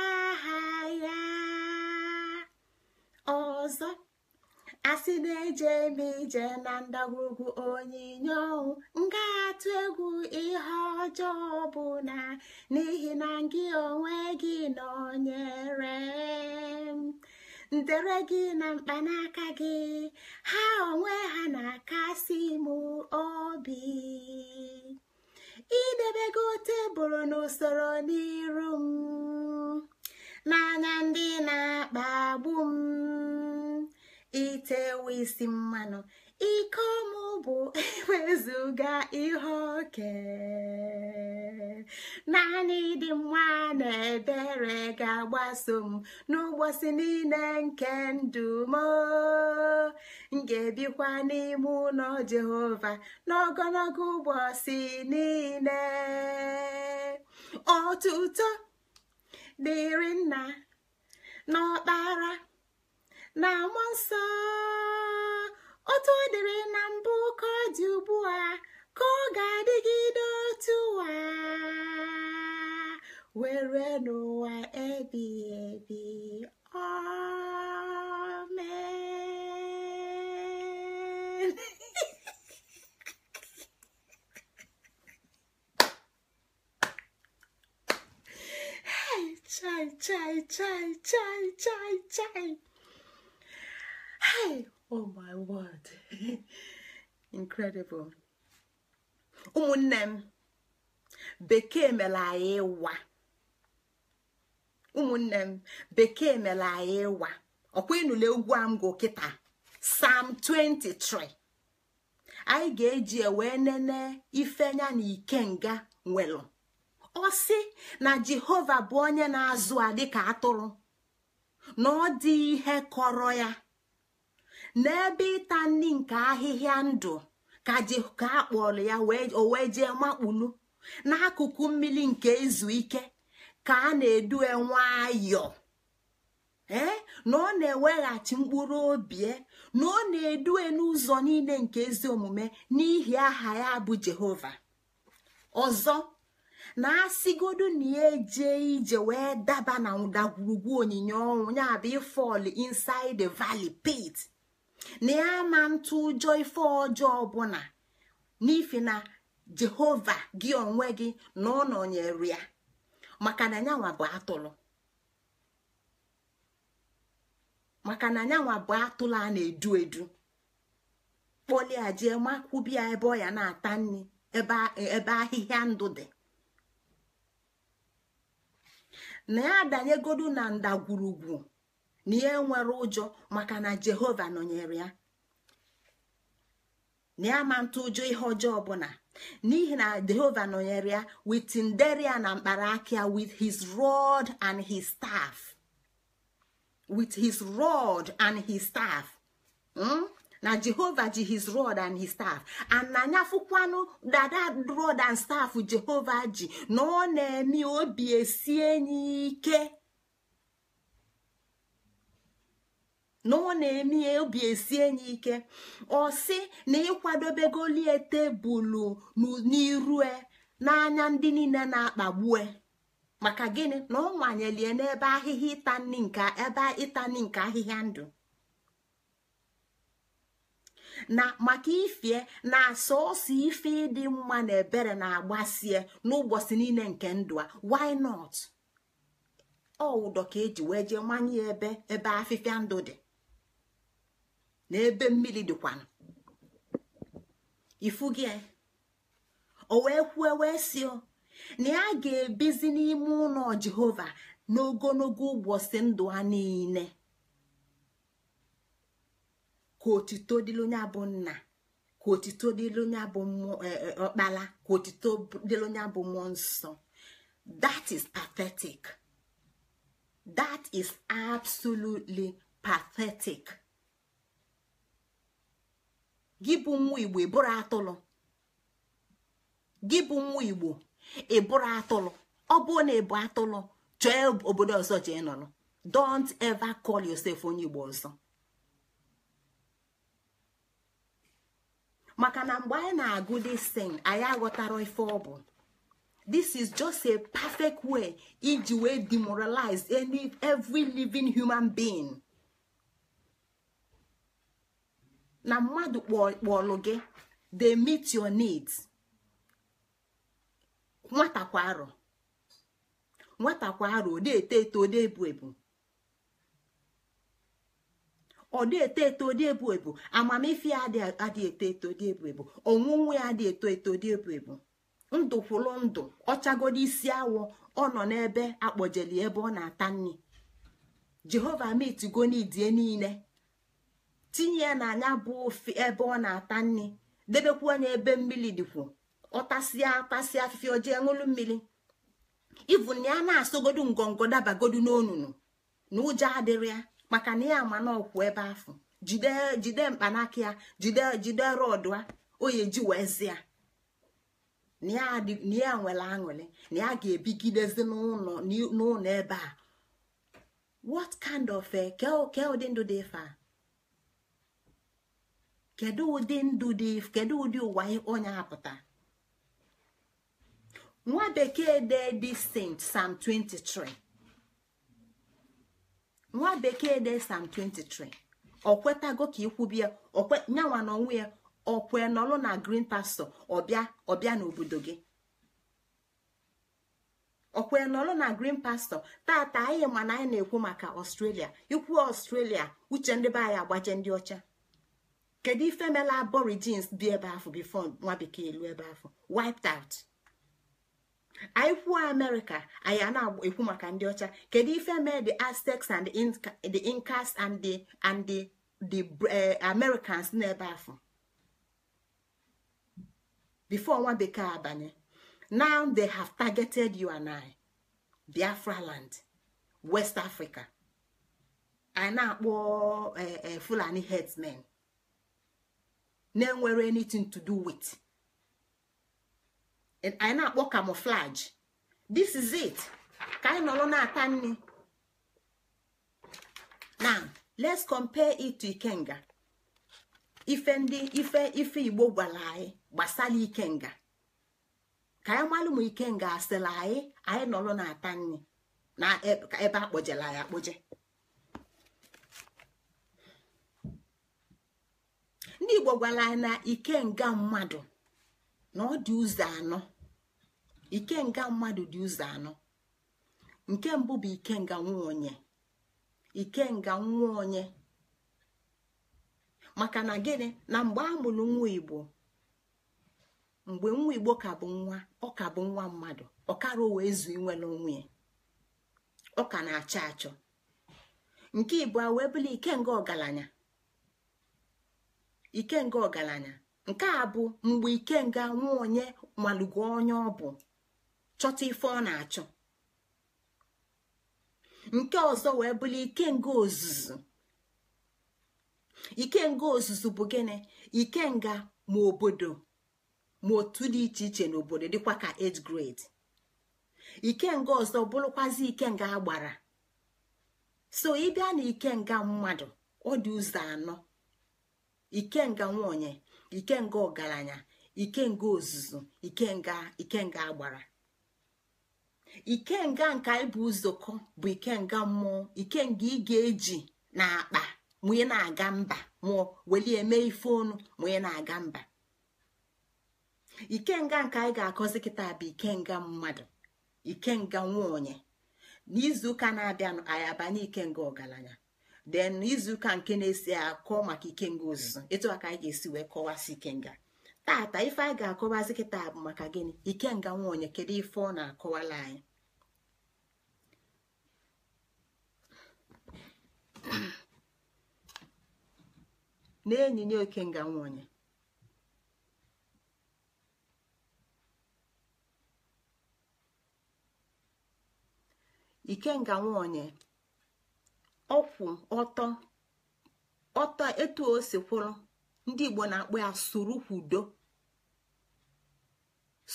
aha ya ọzọ asị na-eje m ije na ndagwurugwu onyinye ọnwụ m egwu ihe ọjọọ bụ na n'ihi na gị onwe gị nọnyere m ndere gị na mkpanaka gị ha onwe ha na-akasi m obi idebego tebụl n'usoro n'iru m n'anya ndị na-akpagbu m itewe isi mmanụ ike ọmụ bụ ewezuga ihe oke naanị dị mma na ebere ga-agbaso m n'ụbọchị niile nke ndụ m ga-ebikwa n'ime ụlọ Jehova n'ogologo ụbọchị niile ọtụtụ dịrị nna n'ọkpara na mmụọ nsọ Otu ọ dịrị na mbụ ka ọ dị ugbu a ka ọ ga-adịgide otu ụwa were n'ụwa ebi ebi amen chai chai chai chai chai chai hey oh my word incredible ụmụnne m bekee mere anyị ịwa ụmụnne m bekee mere anyị ịwa ọkwa ịnụle ugwu kịta sam 23 anyị ga-eji e wee nene ifenya na ikenga nwelu ọ sị na jehova bụ onye na-azụ a dịka atụrụ na ọ dị ihe kọrọ ya n'ebe ịta nri nke ahịhịa ndụ ka ji a kpọrọ ya o wee jee makpulu n'akụkụ mmiri nke izu ike ka a na-edue nwayọọ ee na ọ na-eweghachi mkpụrụ obi e, na ọ na-edue n'ụzọ niile nke ezi omume n'ihi aha ya bụ Jehova ọzọ na asịgodu na ya eje ije wee daba na ndagwurugwu onyinye ọnwụ ya bụ ifọl inside the valley pit na ya ma ntụ ụjọ ife ọjọọ ọbụla n'ifi na jehova gị onwe gị na ọ nọnyere ya maka na nyanwa bụ atụrụ maka na bụ atụrụ a na-edu edu kpọlia jee ya ebe ọ ya na-ata nri ebe ahịhịa ndụ dị na ya adanyegodu na ndagwurugwu na ihe nwere ụjọ maka na jehova nọnyere ya na ya ma ntụ ụjọ ihe ọjọọ ọbụla n'ihi na jehova nọnyere ya witin tinderia na mkpara aka ya with his rod and his staff with his rod and his staff hmm? na jehova ji his rod and his staff ananya fụkwanụ dada rod and staff jehova ji na ọ na-eme obi esi enyi ike na ọ na-eme ya obi esi enyi ike ọ sị na ịkwadobegolie tebụlụ n'irue n'anya ndị niile na-akpagbue maka gịnị na ọ nwanyelie n'ebe ahịhịa ịta nri nke ebe ịta ahịhịa ndụ na maka ifie na asọsọ ife ịdị mma na ebere na-agbasie n'ụbọchị niile nke ndụ a why not ọwụdọ ka eji wee jee manye ebe ebe afịfịa ndụ dị na ebe mmiri dịkwanụ ifu gị e, o wee kwue wee si na ya ga-ebizi n'ime ụlọ jehova n'ogologo ụbọchị ndụ ha niile ka otito dịrị onye bụ nna ka otito dịrị onye bụ e, e, ọkpara ka otito dịrị onye bụ mmụọ nsọ that is pathetic that is absolutely pathetic. gị bụ nwa igbo ịbụrụ atụlụ gị bụ nwa atụlụ ọ bụrụ na ịbụ atụlụ chọọ obodo ọzọ jee nọrọ don't ever call yourself onye igbo ọzọ maka na mgbe anyị na-agụ this thing anyị aghọtara ife ọ bụ this is just a perfect way iji wee demoralize any every living human being. na mmadụ kpọlụ gị they meet your needs nwata kwa arọ nwata ọ eto eto ọ ebu ebu ọ na-eto eto dị ebu ebu amamife ya adị eto eto dị ebu ebu ọnwụnwụ ya adị eto eto dị ebu ebu ndụ kwụrụ ndụ ọchagodo isi awọ ọ nọ n'ebe akpọjeli ebe ọ na-ata nri jehova mitgo n'idie niile tinye ya na anya bụ ofe ebe ọ na-ata nri debekwuo anya ebe mmiri dịkwu ọ tasịa tasịa afịfịa ojee ṅụlụ mmiri ivu ya na-asọgodu ngongo dabagodu n'onunu na ụjọ adịrị ya maka na ya ma n'ọkwụ ebe afọ jide mkpanaka ya jide jide rọdụ a oyeji wezie na ya nwere aṅụrị na ya ga-ebigidezi n'ụlọ ebe a what kind of eh, ke ụdị ndụ dị ife kedu ụdị ndụ dị kedu ụdị ụwa onye apụta nwa bekee dee dị Saint Psalm 23 nwa bekee dee sam 23 ọ kwetago ka ikwubi ya nyanwa na onwe ya ọkwe nọlụ na green pastọ ọbịa n'obodo gị ọkwe nọlụ na green pastọ taata anyị mana anyị na-ekwu maka ọstrelia ikwu ọstrelia uche ndị be anyị agbaje ndị ọcha kedu ife mela aborigines bi ebe afọ bifo nwa bekee elu ebe afọ wiped out anyị kwuo amerịka anyị a na-ekwu maka ndị ọcha kedu ife mee the aztecs and the incas and the and the the eh, americans n'ebe afọ before nwa bekee abanye now they have targeted you and I biafra land west africa anyị na-akpọ oh, eh, eh, fulani herdsmen na-enwere anything to do with anyị na-akpọ camouflage this is it ka anyị nọrọ na-ata nri now let's compare it to ikenga ife ndị ife ife igbo gwara anyị gbasara ikenga ka anyị malụ ma ikenga asịla anyị anyị nọrọ na-ata nri na e, ebe akpọjela ya akpọje ndị igbo gwara na ike nga mmadụ na ọ dị ụzọ anọ ikenga mmadụ dị ụzọ anọ nke mbụ bụ ike nga nwa onye maka na gịnị na mgbe a mụrụ nwa igbo mgbe nwa igbo ka bụ nwa ọ ka bụ nwa mmadụ ọ kara ezu inwere onwe ọ ka na-achọ achọ nke a wee ike ikenga ọgaranya ikenga ọgaranya nke a bụ mgbe ikenga nwa onye malụgo onye ọ bụ chọta ife ọ na-achọ nke ọzọ wee bụrụ ikenga ozuzu ikenga ozuzu bụ gịnị ikenga ma obodo ma otu dị iche iche n'obodo dịkwa ka 8th ikenga ọzọ bụrụkwazi ikenga agbara so ịbịa na ikenga mmadụ ọ dị ụzọ anọ ikenga nwaonye ikenga ọgaranya ikenga ozuzu ikenga ikenga agbara ikenga nka ịbụ ụzọkọ bụ ikenga mmụọ ikenga ị ga-eji na akpa mụnye na-aga mba mụọ welie eme ife ọnụ mụnye na-aga mba ikenga nke anyị ga-akọzi kịta bụ ikenga mmadụ ikenga nwaonye n'izu ụka na-abịanụ anyị abanye ikenga ọgaranya Den izu ka nke na-esi akọ maka ikenga ozuzo mm. etu aka anyị ga-esi wee kọwasị ikenga tata ife anyị ga-akọwazi kịta bụ maka gịnị ikenga nwaonye kedu ife ọ na-akọwala anyị n'enyinye ikenga nwaonye ikenga nwaonye ọkwụ ọtọ ọtọ etu o si ndị igbo na-akpọ ya surukwudo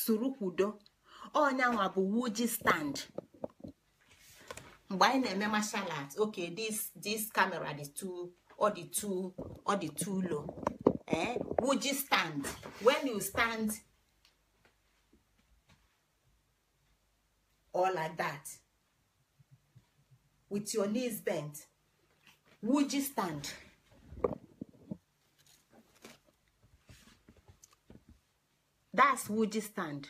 surukwudo ọnyanwa bụ wuji stand mgbe anyị na-eme martial arts okay this this camera dị too ọ dị too ọ dị eh wuji stand when you stand all like that. with your knees bent would you stand that's would you stand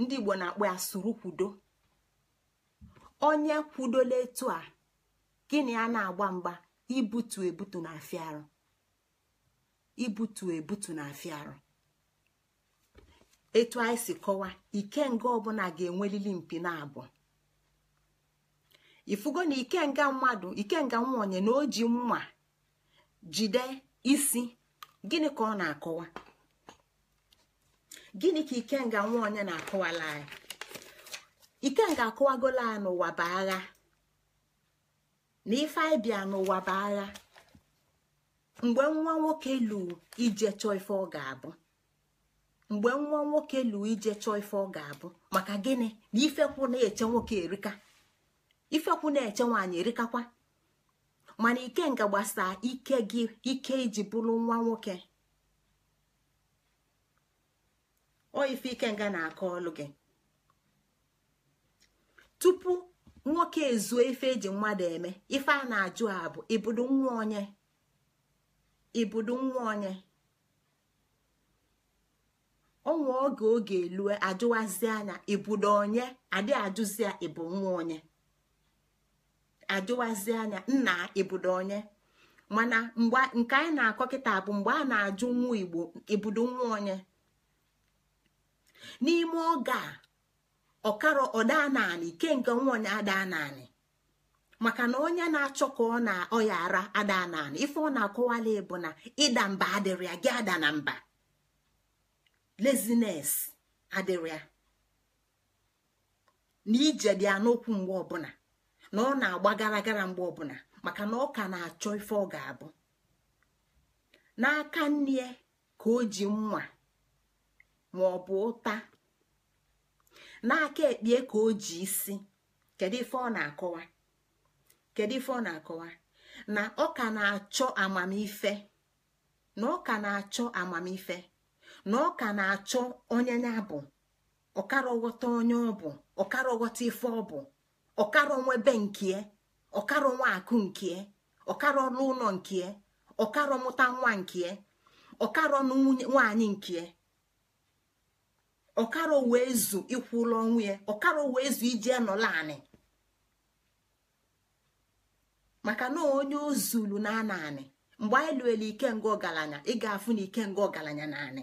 ndị igbo na-akpọ ya suru kwudo onye kwudola etu a gịnị a na-agba mgba ibutu ebutu na afịarụ ibutu ebutu na afịarụ etu anyị si kọwa ikenga ọbụla ga-enwelili mpi na abụọ ifugo na ikenga mmadụ ikenga nwa onye na o ji mma jide isi gịnị ka ọ na-akọwa gịnị ka ikenga nwa onye na-akọwala anyị ikenga akọwagola ya n'ụwa bụ agha na ife anyị bịa n'ụwa bụ agha mgbe nwa nwoke lụrụ ije chọọ ife ọ ga-abụ mgbe nwa nwoke lụrụ ije chọọ ife ọ ga-abụ maka gịnị na ifekwu na-eche nwoke erika ifekwu na-eche nwaanyị erikakwa mana ike nga gbasaa ike gị ike iji bụrụ nwa nwoke ọ ife ike nga na-akọ ọlụ gị tupu nwoke ezuo ife eji mmadụ eme ife a na-ajụ a bụ ibudo nwa onye ibudo nwa onye ọnwa oge oge elue ajụwazi anya ibudo onye adị ajụzi ya ịbụ nwa onye ajụwazi anya nna ibudo onye mana mgbe nke anyị na-akọ kịta bụ mgbe a na-ajụ nwa igbo ibudo nwa onye n'ime oge a ọkara ọdaa naanị nke nwa onye adaa naanị maka na onye na-achọ ka ọ na ọya ara adaa naanị ife ọ na-akọwala bụ na ịda mba adịrị ya gị ada na mba lezines adịrị na ije dị anokwu mgbe ọbụla na ọ na-agba gara gara mgbe ọbụla maka na ọ ka na-achọ ife ọ ga-abụ n'aka nne ya ka o ji nwa ma ọ bụ ụta n'aka ekpie ka o ji isi kedu ife ọ na-akọwa kedu ife ọ na-akọwa na ọ ka na-achọ amamife na ọ ka na-achọ amamife na ọ ka na-achọ onye ya bụ ọkara ọghọta onye ọ bụ ọkara ọghọta ife ọ bụ ọkara onwe be nke ọkara akụ nke ọkara ọnụ ụlọ nke ọkara nwa nke ọkara ọnụ nwaanyị nke ọkara wee zu ịkwụ ụlọ onwe ya wee zu iji nọla anị maka na onye ozulu na anị mgbe anyị ike ikenga ọgaranya ị ga-afụ na ikenga ọgaranya na anị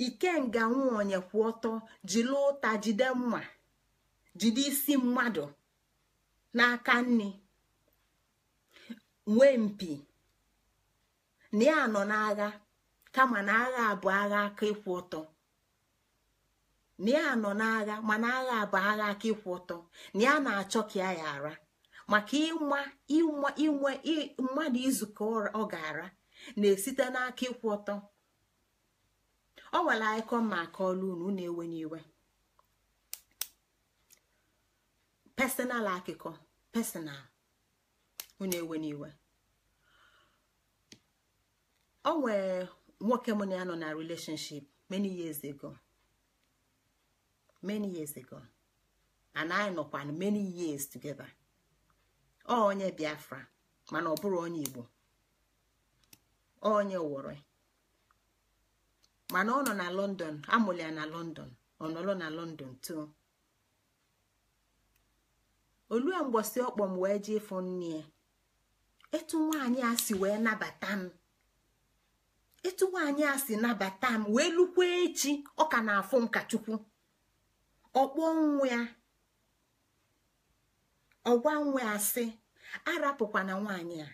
ikenga nwaonye kwụ ọtọ jiri ụta jide mma jide isi mmadụ n'aka nri nwee mpi na ya nọ n'agha kama na agha bụ agha aka ịkwụ ọtọ na ya nọ n'agha mana agha bụ agha aka ịkwụ ọtọ na ya na-achọ ka ya ya ara maka ịma inwe mmadụ izukọ ọ ga-ara na-esite n'aka ịkwụ ọtọ ọ nwere icon ma akọọla unu unu ewenye iwe personal akụkọ personal unu ewenye iwe ọ nwere nwoke mụ na ya nọ na relationship many years ago many years ago and anyị nọkwa many years together ọ onye Biafra mana ọ bụrụ onye Igbo onye wore mana ọ nọ na london amụrụ ya na london ọ nọrọ na london too olue mgbọsi ọkpọ m wee jee ịfụ nne ya etu nwaanyị a si wee nabata m etu nwaanyị a si nabata m wee lukwa echi ọ ka na-afụ nkachukwu ọkpọ nwa ya ọgwa nwa asị arapụkwana nwaanyị a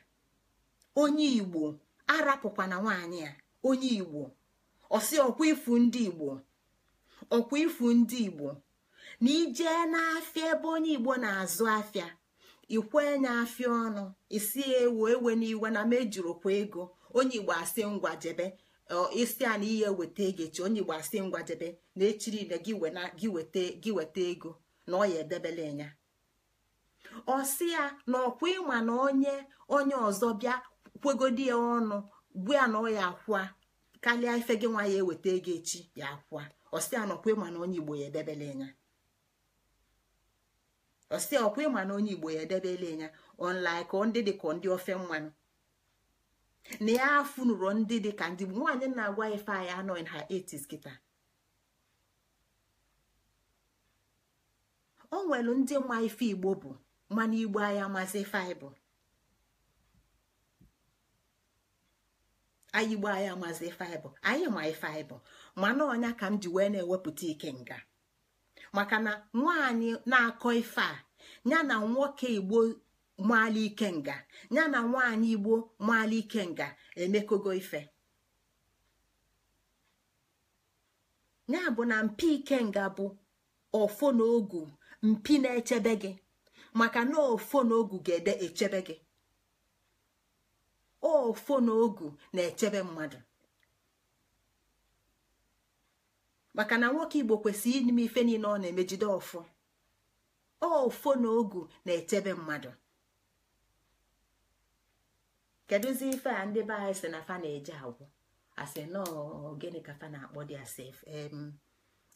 onye igbo arapụkwana nwaanyị a onye igbo ọsị ọkwa ifu ndị igbo ọkwa ifu ndị igbo na ije n'afịa ebe onye igbo na-azụ afịa ikwe nye afịa ọnụ isi ewu ewe n'iwe na mejurukwa ego onye igbo asị jebe, isi a na ihe weta ego echi onye igbo asị jebe na echiri na gị weta ego na ọ ya enya. ọsị ya na ọkwa ịma na onye onye ọzọ bịa kwegodi ya ọnụ bụ ya na ọ ya kwa karịa ife gị nwa ya eweta ego echi ya akwa ọsị anọkwa ịma na onye igbo ya edebele ya ọsị ọkwa ịma na onye igbo ya edebele ya ọnlaịka ndị dị ka ndị ofe mmanụ na ya afụ afụnụrụ ndị dị ka ndị nwaanyị na-agwa ife anyị anọ in her 80s kịta o nwere ndị ma ife igbo bụ mmanụ igbo anya amazi ife anyị bụ anyị igbo anyị amazi faịbụ anyị ma faịbụ mana ọnya ka m ji wee na-ewepụta ike nga maka na nwaanyị na-akọ ife a ya na nwoke igbo maala nga ya na nwaanyị igbo maala nga emekogo ife ya bụ na mpi ike nga bụ ofo na ogu mpi na-echebe gị maka na ofo na ogu ga-ede echebe gị ofo na ogu na-echebe mmadụ maka na nwoke igbo kwesịrị ime ife niile ọ na-emejide o ofo na ogu na-echebe mmadụ kedụzi ife a ndị be anyị si na fa na-eje agwụ asị nọọ gịnị ka fa na-akpọ dị asị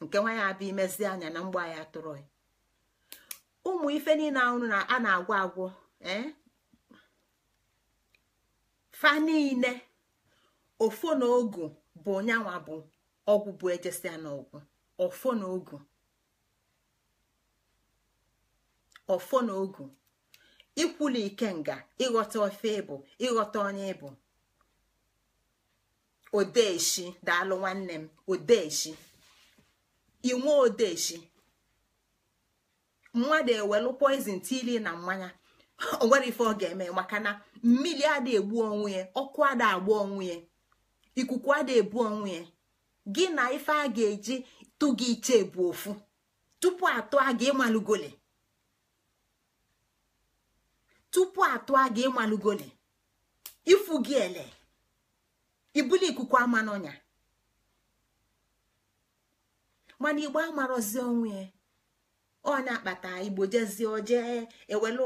nke nwanyị ya abịa imezi anya na mgbe ya tụrụ ụmụ ife niile ahụ a na-agwọ agwọ fa niile ofo na ogu bụ nyanwa bụ ọgwụ bụ ejesia ọgwụ ofo na ogu ofo na ogu ike ikenga ịghọta ofe ịbụ ịghọta onye ịbụ odeshi daalụ nwanne m odeshi inwe odeshi mmadụ ewelu poizin tili na mmanya o nwere ife ọ ga-eme maka na. mmiri ada egbu onwe ya ọkụ ada agba onwe ya ikuku ada ebu onwe ya gị na ife a ga-eji tụ gị iche bụ ofu tupu atụ a ga ịmalugole tupu ifu gị ele ibuli ikuku ama n'ọnya mana igbe amarọzi onwe ya ọnya akpata igbo jezie ojee ewele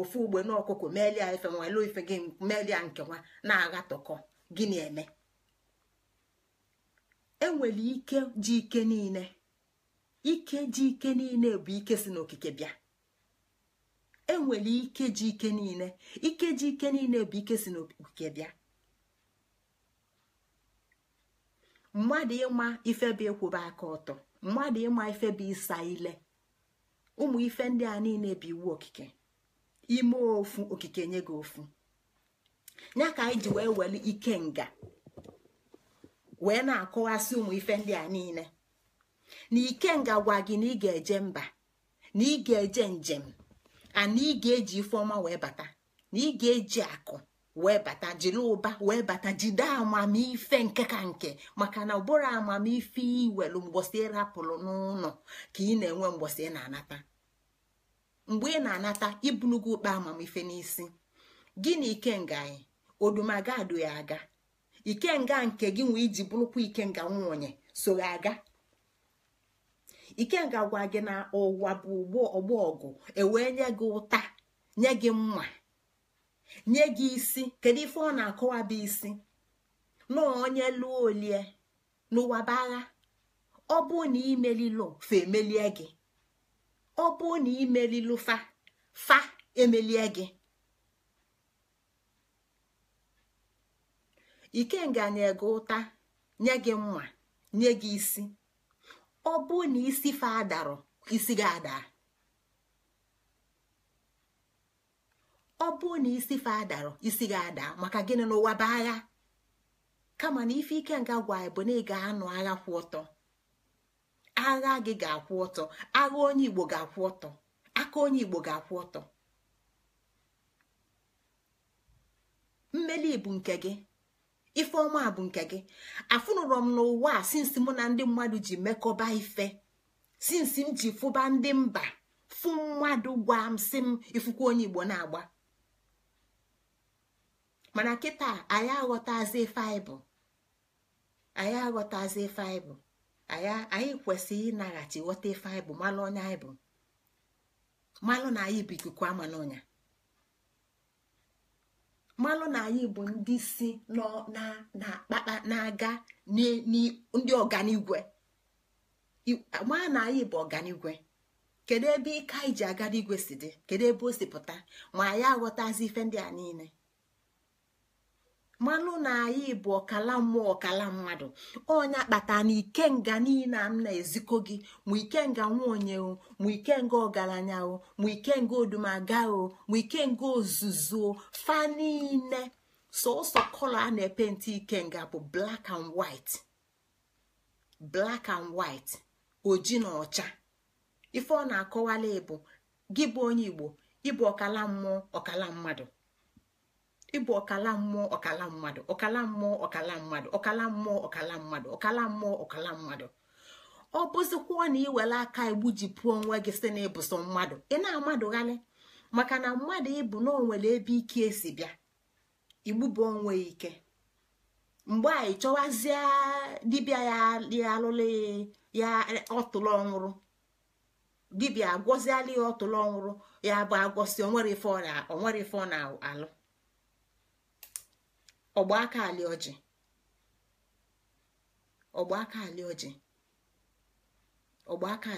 ofu ugbe n'ọkụkụ melia ife nwele ife gị melia nke nwa na-aghatọkọ agha gịnị eme enwere ike ji ike niile ike ji ike niile bụ ike si n'okike bịa enwere ike ji ike niile ike ji ike niile bụ ike si n'okike bịa mmadụ ịma ife bụ ịkwụba aka ọtọ mmadụ ịma ife bụ ịsa ile ụmụ ife ndị a niile bụ iwu okike ime ofu okike nye gị ofu ya ka anyị ji wee weli ike nga wee na-akọwasị ụmụ ife ndị a niile na ike nga gwa gị na ị ga-eje mba na ị ga-eje njem ana na ị ga-eji ifeọma wee bata na ị ga-eji akụ wee bata jiri ụba wee bata jide amamife nke ka nke maka na ụbụrụ amamife iwelu mgbọsị ịrapụrụ n'ụlọ ka ị na-enwe mgbọsị ị na-anata mgbe ị na-anata ibulugo ụkpa amamife n'isi gị na ikenga anyị odumaga adụ ya aga ikenga nke gị nwee iji bụrụkwa ikenga nwunye so ya aga ikenga gwa gị na ụwa bụ ọgbọ ọgụ ewee nye gị ụta nye gị mma nye gị isi kedu ife ọ na-akọwa bụ isi na onye lụọ olie n'ụwa bụ agha ọ bụ na imelilo fa emelie gị ọ bụrụ na imelilu fa fa emelie gị ikenga nye gị ụta nye gị mma nye gị isi ọ bụrụ na isi fa adarọ isi gị ada ọ bụrụ na isi fa adarọ isi gị ada maka gịnị n'ụwa baa agha kama na ife ikenga gwa bụ na ị ga-anụ agha kwụ ọtọ agha gị ga-akwụ ọtọ agha onye igbo ga-akwụ ọtọ aka onye igbo ga-akwụ ọtọ mmeli bụ nke gị ifeọma bụ nke gị afụnụrọ m n'ụwa a sinsi mụ na ndị mmadụ ji mekọba ife sinsi m ji fụba ndị mba fụ mmadụ gwa m si m ifukwa onye igbo na-agba mana kịta anyị aghọtazi ife anyị bụ anyị aghọtazi ife anyị bụ anyị kwesịrị ịnaghachi ghọta ife anyị bụ malụ onye anyị bụ malụ na anyị bụ ikuku ama amanonya malụ na anyị bụ ndị si na-aga ndị ọganigwe maa na anyị bụ ọganigwe kedu ebe ike anyị ji aga n'igwe si dị kedu ebe o si pụta ma anyị aghọtazi ife ndị a niile manụ na anyị bụ ọkala mmụọ ọkala mmadụ onye kpata na ikenga niile m na-ezikọ gị ma ikenga nwaonye o ma ikenga ọgaranya o ma ikenga odumaga o ma ikenga ozuzu fa niile sọsọ kọlọ a na-epenti ikenga bụ black and black and white oji na ọcha ife ọ na-akọwala bụ gị bụ onye igbo ịbụ ọkala mmụọ ọkala mmadụ ịbụ ọkala mmụọ ọkala mmadụ ọkala mmụọ ọkala mmadụ ọkala mmụọ ọkala mmadụ ọkala mmụọ ọkala mmadụ ọ bụzikwuo na iwere aka igbujipụọ onwe gị si na ịbụso mmadụ ị na-amadụghalị maka na mmadụ ịbụ na onwere ebe ike esi bịa igbubu onwe ike mgbe anyị chọwazie dibịa ya alụlụ ya ọtụlụ ọnwụrụ dibịa agwọziala ya ọtụlụ ọnwụrụ ya bụ agwọsi onwere ife ọ na-alụ ọgba aka alị ọgba aka alị ọgba aka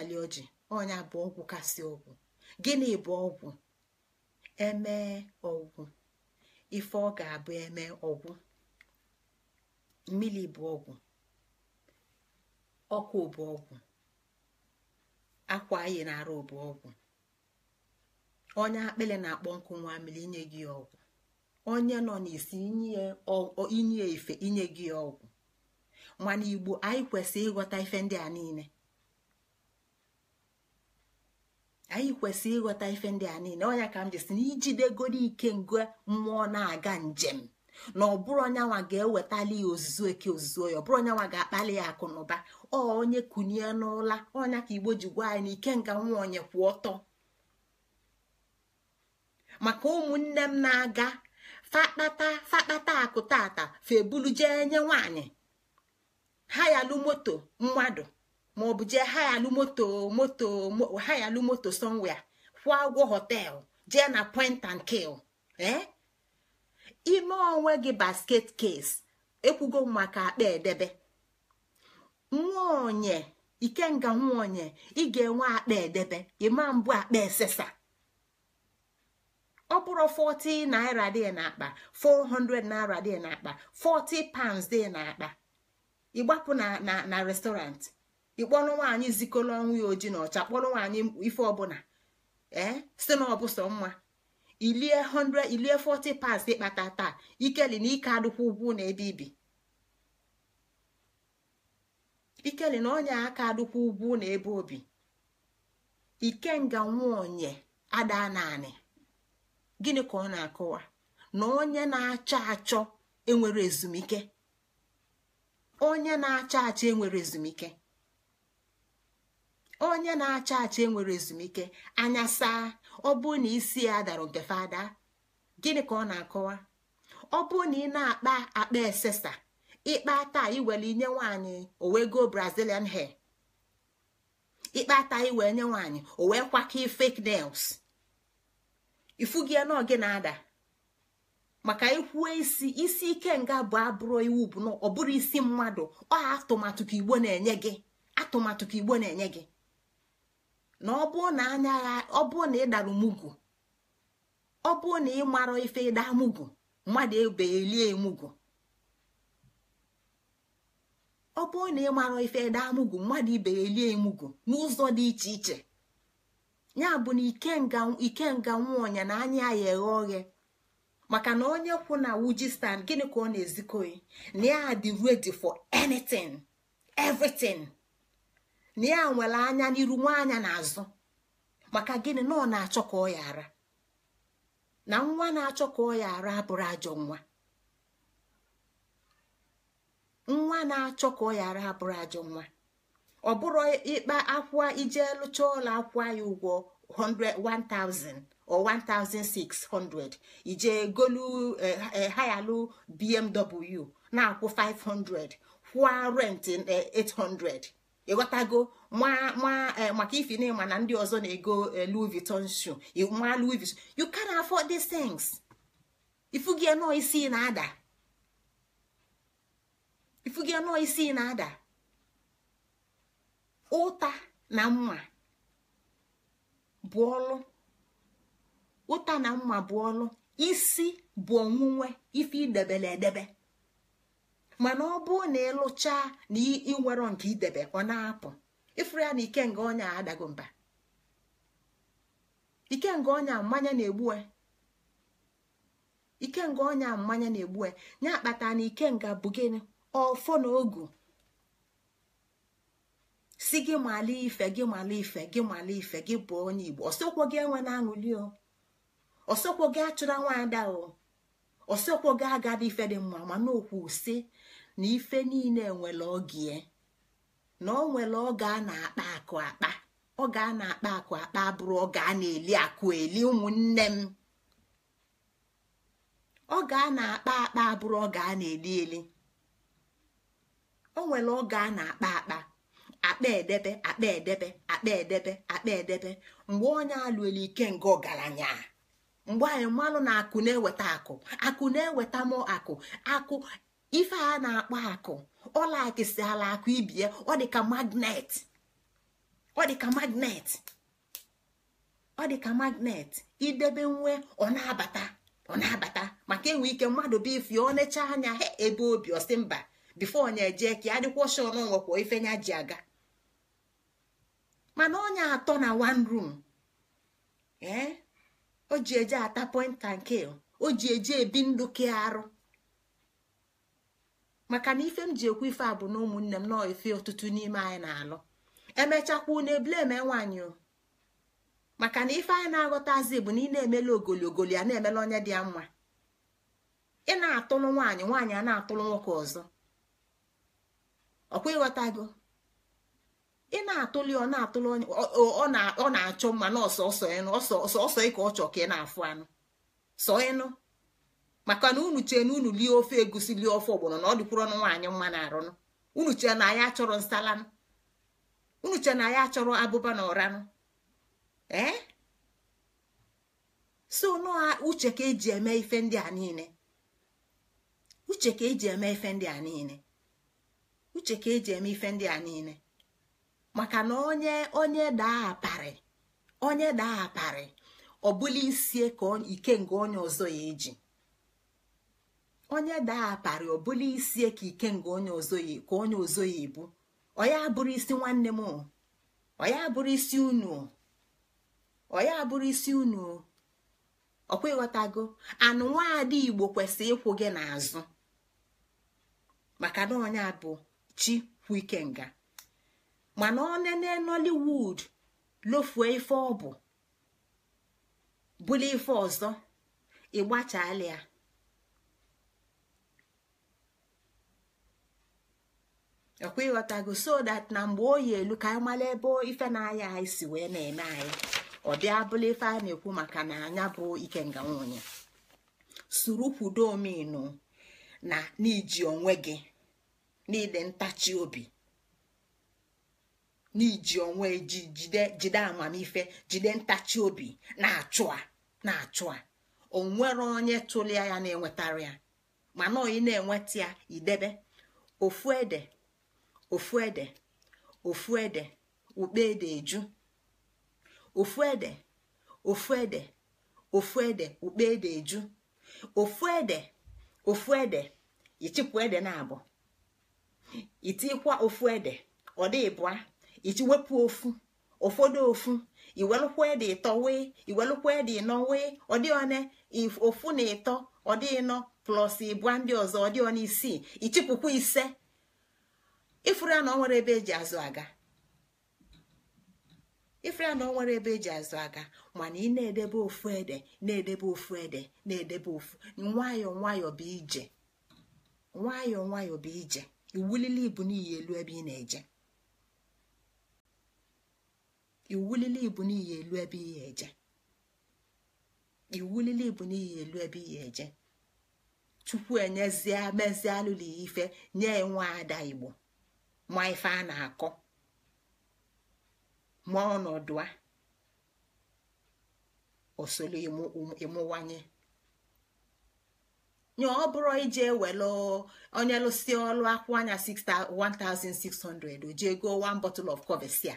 ọnya bụ ọgwụ kasị ọgwụ gịnị bụ ọgwụ emee ọgwụ ife ọ ga-abụ eme ọgwụ mmiri bụ ọgwụ ọkụ bụ ọgwụ akwa anyị na-arụ bụ ọgwụ onye akpịlị na-akpọ nkụ nwa mmiri inye gị ọgwụ onye nọ n'isi inye ife inye gị ọgwụ mana igbo anyị kwesịrị ịghọta ife ndị a niile anyị kwesịrị ịghọta ife ndị a niile onye ka m ji na ijidegoro ike ngo mmụọ na-aga njem na ọ bụrụ onyanwa ga-ewetali ya ozuzo eke ozuzo ya ọ bụrụ onyanwa ga-akpali ya akụ na ụba ọ onye kunie n'ụla ọnya ka igbo ji gwa anyị na ike nga nwa onye kwụ ọtọ maka ụmụnne m na-aga fakpata fakpata akụtata febulu jee nye nwanyị hayalu moto mmadụ maọbụ jee hayalu moto moto hayalu moto somewhere kwụọ ụgwọ họteelụ jee na point and kill eh? ime onwe gị basket case ekwugo maka akpa edebe onye ikenga nwaonye ị ga-enwe akpa edebe ịma mbụ akpa esesa ọ bụrụ 40 naira dị n'akpa 400 naira dị n'akpa 40 pounds dị n'akpa ịgbapụ na na restọrantị ịkpọrọ nwaanyị zikọrọ ọnwụ ya oji na ọcha kpọrọ nwaanyị ife ọbụla ee si na mma ilie 100 ilie 40 pounds ịkpata taa ikeli na ike adịkwa ugwu na ebe ibi ikeli na onye aka adịkwa ugwu na ebe obi ikenga onye ada naanị gịnị ka ọ na-akọwa na onye na-achọ achọ enwere ezumike onye na-achọ achọ enwere ezumike onye na-achọ achọ enwere ezumike anya saa ọ bụrụ na isi ya dara nke fada gịnị ka ọ na-akọwa ọ bụrụ na ị na-akpa akpa esesa ịkpa taa iwere inye nwaanyị go brazilian hair ịkpa taa iwere nye nwaanyị o wee kwakọ fake nails ifu ya na ogi na-ada maka ikwu isi isi ike nga bụ abụrụ iwu bụ na ọ bụrụ isi mmadụ ọ atụmatụ ka igbo na-enye gị atụmatụ ka igbo na-enye gị na ọ bụrụ na anya ọ bụrụ na ị dara mugwu ọ bụrụ na ị mara ife ịda mugwu mmadụ ebelie emugwu ọ bụrụ na ị mara ife ịda mugwu mmadụ ibelie emugwu n'ụzọ dị iche iche ya bụ na ike ikenga nwaọnya na anya ya eghe oghe maka na onye kwụ na wuji gịnị ka ọ na-ezikoyi na ya dị ready for anyịtin everitin na ya nwere anya n'iru anya n'azụ maka gịnị na ọ na-achọ ka ọ yara na nwa na-achọ ka ọ yara abụrụ ajọ nwa nwa na-achọ ka ọ yara abụrụ ajọ nwa ọ bụrụ ịkpa akwa ije lụcha ụlọ akwa ya ụgwọ 1000 or 1600 ije golu hayalụ eh, eh, bmw na-akwụ 500 kwụọ rent 800 eh, ịghọtago maka ifi na na ndị ọzọ na-ego Louis Vuitton shoe ma Louis you can afford these things ifugie nọ isi na-ada ifugie nọ isi na-ada ụta na mma bụ ọlụ ụta na mma bụ ọlụ isi bụ onwunwe ife idebele edebe mana ọ bụrụ na ịlụcha na ịnwero nke idebe ọ na-apụ ịfụrụ ya na ikenga ọnya adago mba ikenga ọnya mmanya na-egbu e. ikenga ọnya mmanya na-egbu e. ya akpata na ikenga bụ gịnị ọfọ na ogu si gị mala ife gị mala ife gị mala ife gị bụ onye igbo ọsọkwo gị enwe na-aṅụli o ọsọkwo gị achụra nwaada o ọsọkwo gị agada ife dị mma mana okwu si na ife niile nwere oge e. na ọ nwere oge a na-akpa akụ akpa oge a na-akpa akụ akpa abụrụ oge a na-eli akụ eli ụmụnne m oge a na-akpa akpa abụrụ oge a na-eli eli o nwere oge a na-akpa akpa akpa edebe akpa edebe akpa edebe akpa edebe mgbe onye alụelu ike nga ọgaranya mgbe anyị mmanụ na akụ na-eweta akụ akụ na-eweta m akụ akụ ife a na-akpọ akụ ọla akịsị ala akụ ibie ọ dịka magnet ọ dịka magnet ọ dịka magnet idebe nwe ọ na-abata ọ na-abata maka enwe ike mmadụ bụ ife ọ na-eche anya ebe obi ọsị mba bifo onye ka ya dịkwa ọshọ n'onwekwa ife nya ji aga mana onye atọ na one room ee eh? o ji eje ata point nke o ji eje ebi ndụ ke arụ maka na ife m ji ekwu ife a bụ na ụmụnne m nọọ ife ọtụtụ n'ime anyị na-alụ emechakwa unu eme nwaanyị o maka na ife anyị na-aghọtazi bụ na ị na emele ogologolo ya na emele onye dị ya mma ị na-atụlụ nwaanyị nwaanyị a na-atụlụ nwoke ọzọ ọkwa gị? ị na-atụli ọ na-atụli onye ọ na-achọ mma na ọsọsọ ịnụ ọsọsọ ịka ọ chọ ka ị na-afụ anụ sọ ịnụ maka na unu chee na unu lie ofe egusi lie ofe ọgbọnọ na ọ dịkwụrụ ọnụ nwaanyị mma na-arụnụ unu chee na ya achọrọ nsalanụ unu chee na ya achọrọ abụba na ọranụ ee so nọa uche ka eji eme ife ndị a niile uche ka eji eme ife ndị a niile uche ka eji eme ife ndị a niile maka na onye onye daa aparị onye daa aparị ọbụla isie ka ike nke onye ọzọ ya eji onye daa ọ ọbụla isie ka ike nke onye ọzọ ya ka onye ọzọ ya ebu oya abụrụ isi nwanne m oya bụrụ isi unu oya abụrụ isi unu ọkwa ịghọtago anụ nwaada igbo kwesịrị ịkwụ gị n'azụ maka na onye bụ chi kwu ikenga mana onene nollywood lofue ife ọ bụ bụla ife ọzọ ịgbachala ya ọkwa ịghọtago so that na mgbe oyi elu ka anyị mara ebe ife na-aya anyị si wee na-eme anyị ọ bịa bụla ife a na-ekwu maka na anya bụ ike nwunye suru kwudo omenu na n'iji onwe gị n'ide ntachi obi n'iji onwe ji jide amamife jide ntachi obi na-achụ a na-achụ a onwere onye tụlia ya na-enwetara ya mana ị na-enweta ya idebe ofu ede ofu ede ofu ede ukpe ede eju ofu ede ofu ede ofu ede ukpe ede eju ofu ede ofu ede ichịkwa ede na abụ itikwa ofu ede ọ dịbụa. iji wepụ ofu ụfọdụ ofu iwelụkwa dị ịtọ wee iwelụkwa dị ịnọ wee ọdịone ofu na ịtọ ọdịnọ plọs ịbụa ndị ọzọ ọdịona isii ichịpụkwa ise ifuru ya na ọ nwere ebe eji azụ aga ifuru ya na ọ nwere ebe eji azụ aga mana ị na-edebe ofu ede na-edebe ofu ede na-edebe ofu nwayọ nwayọ bụ ije nwayọ nwayọ bụ ije iwulili ibu n'ihi elu ebe ị na-eje iwulili ibu n'ihi elu ebe ihe eje iwulili ibu n'ihi elu ebe ihe eje chukwu enyezie mezie alụla ife nye nwa ada igbo ma ife a na-akọ ma ọnọdụ a osolo ịmụwanye nye ọ bụrụ ije welu onye lụsi ọlụ akwụ anya 1600 o jee goo one bottle of covexia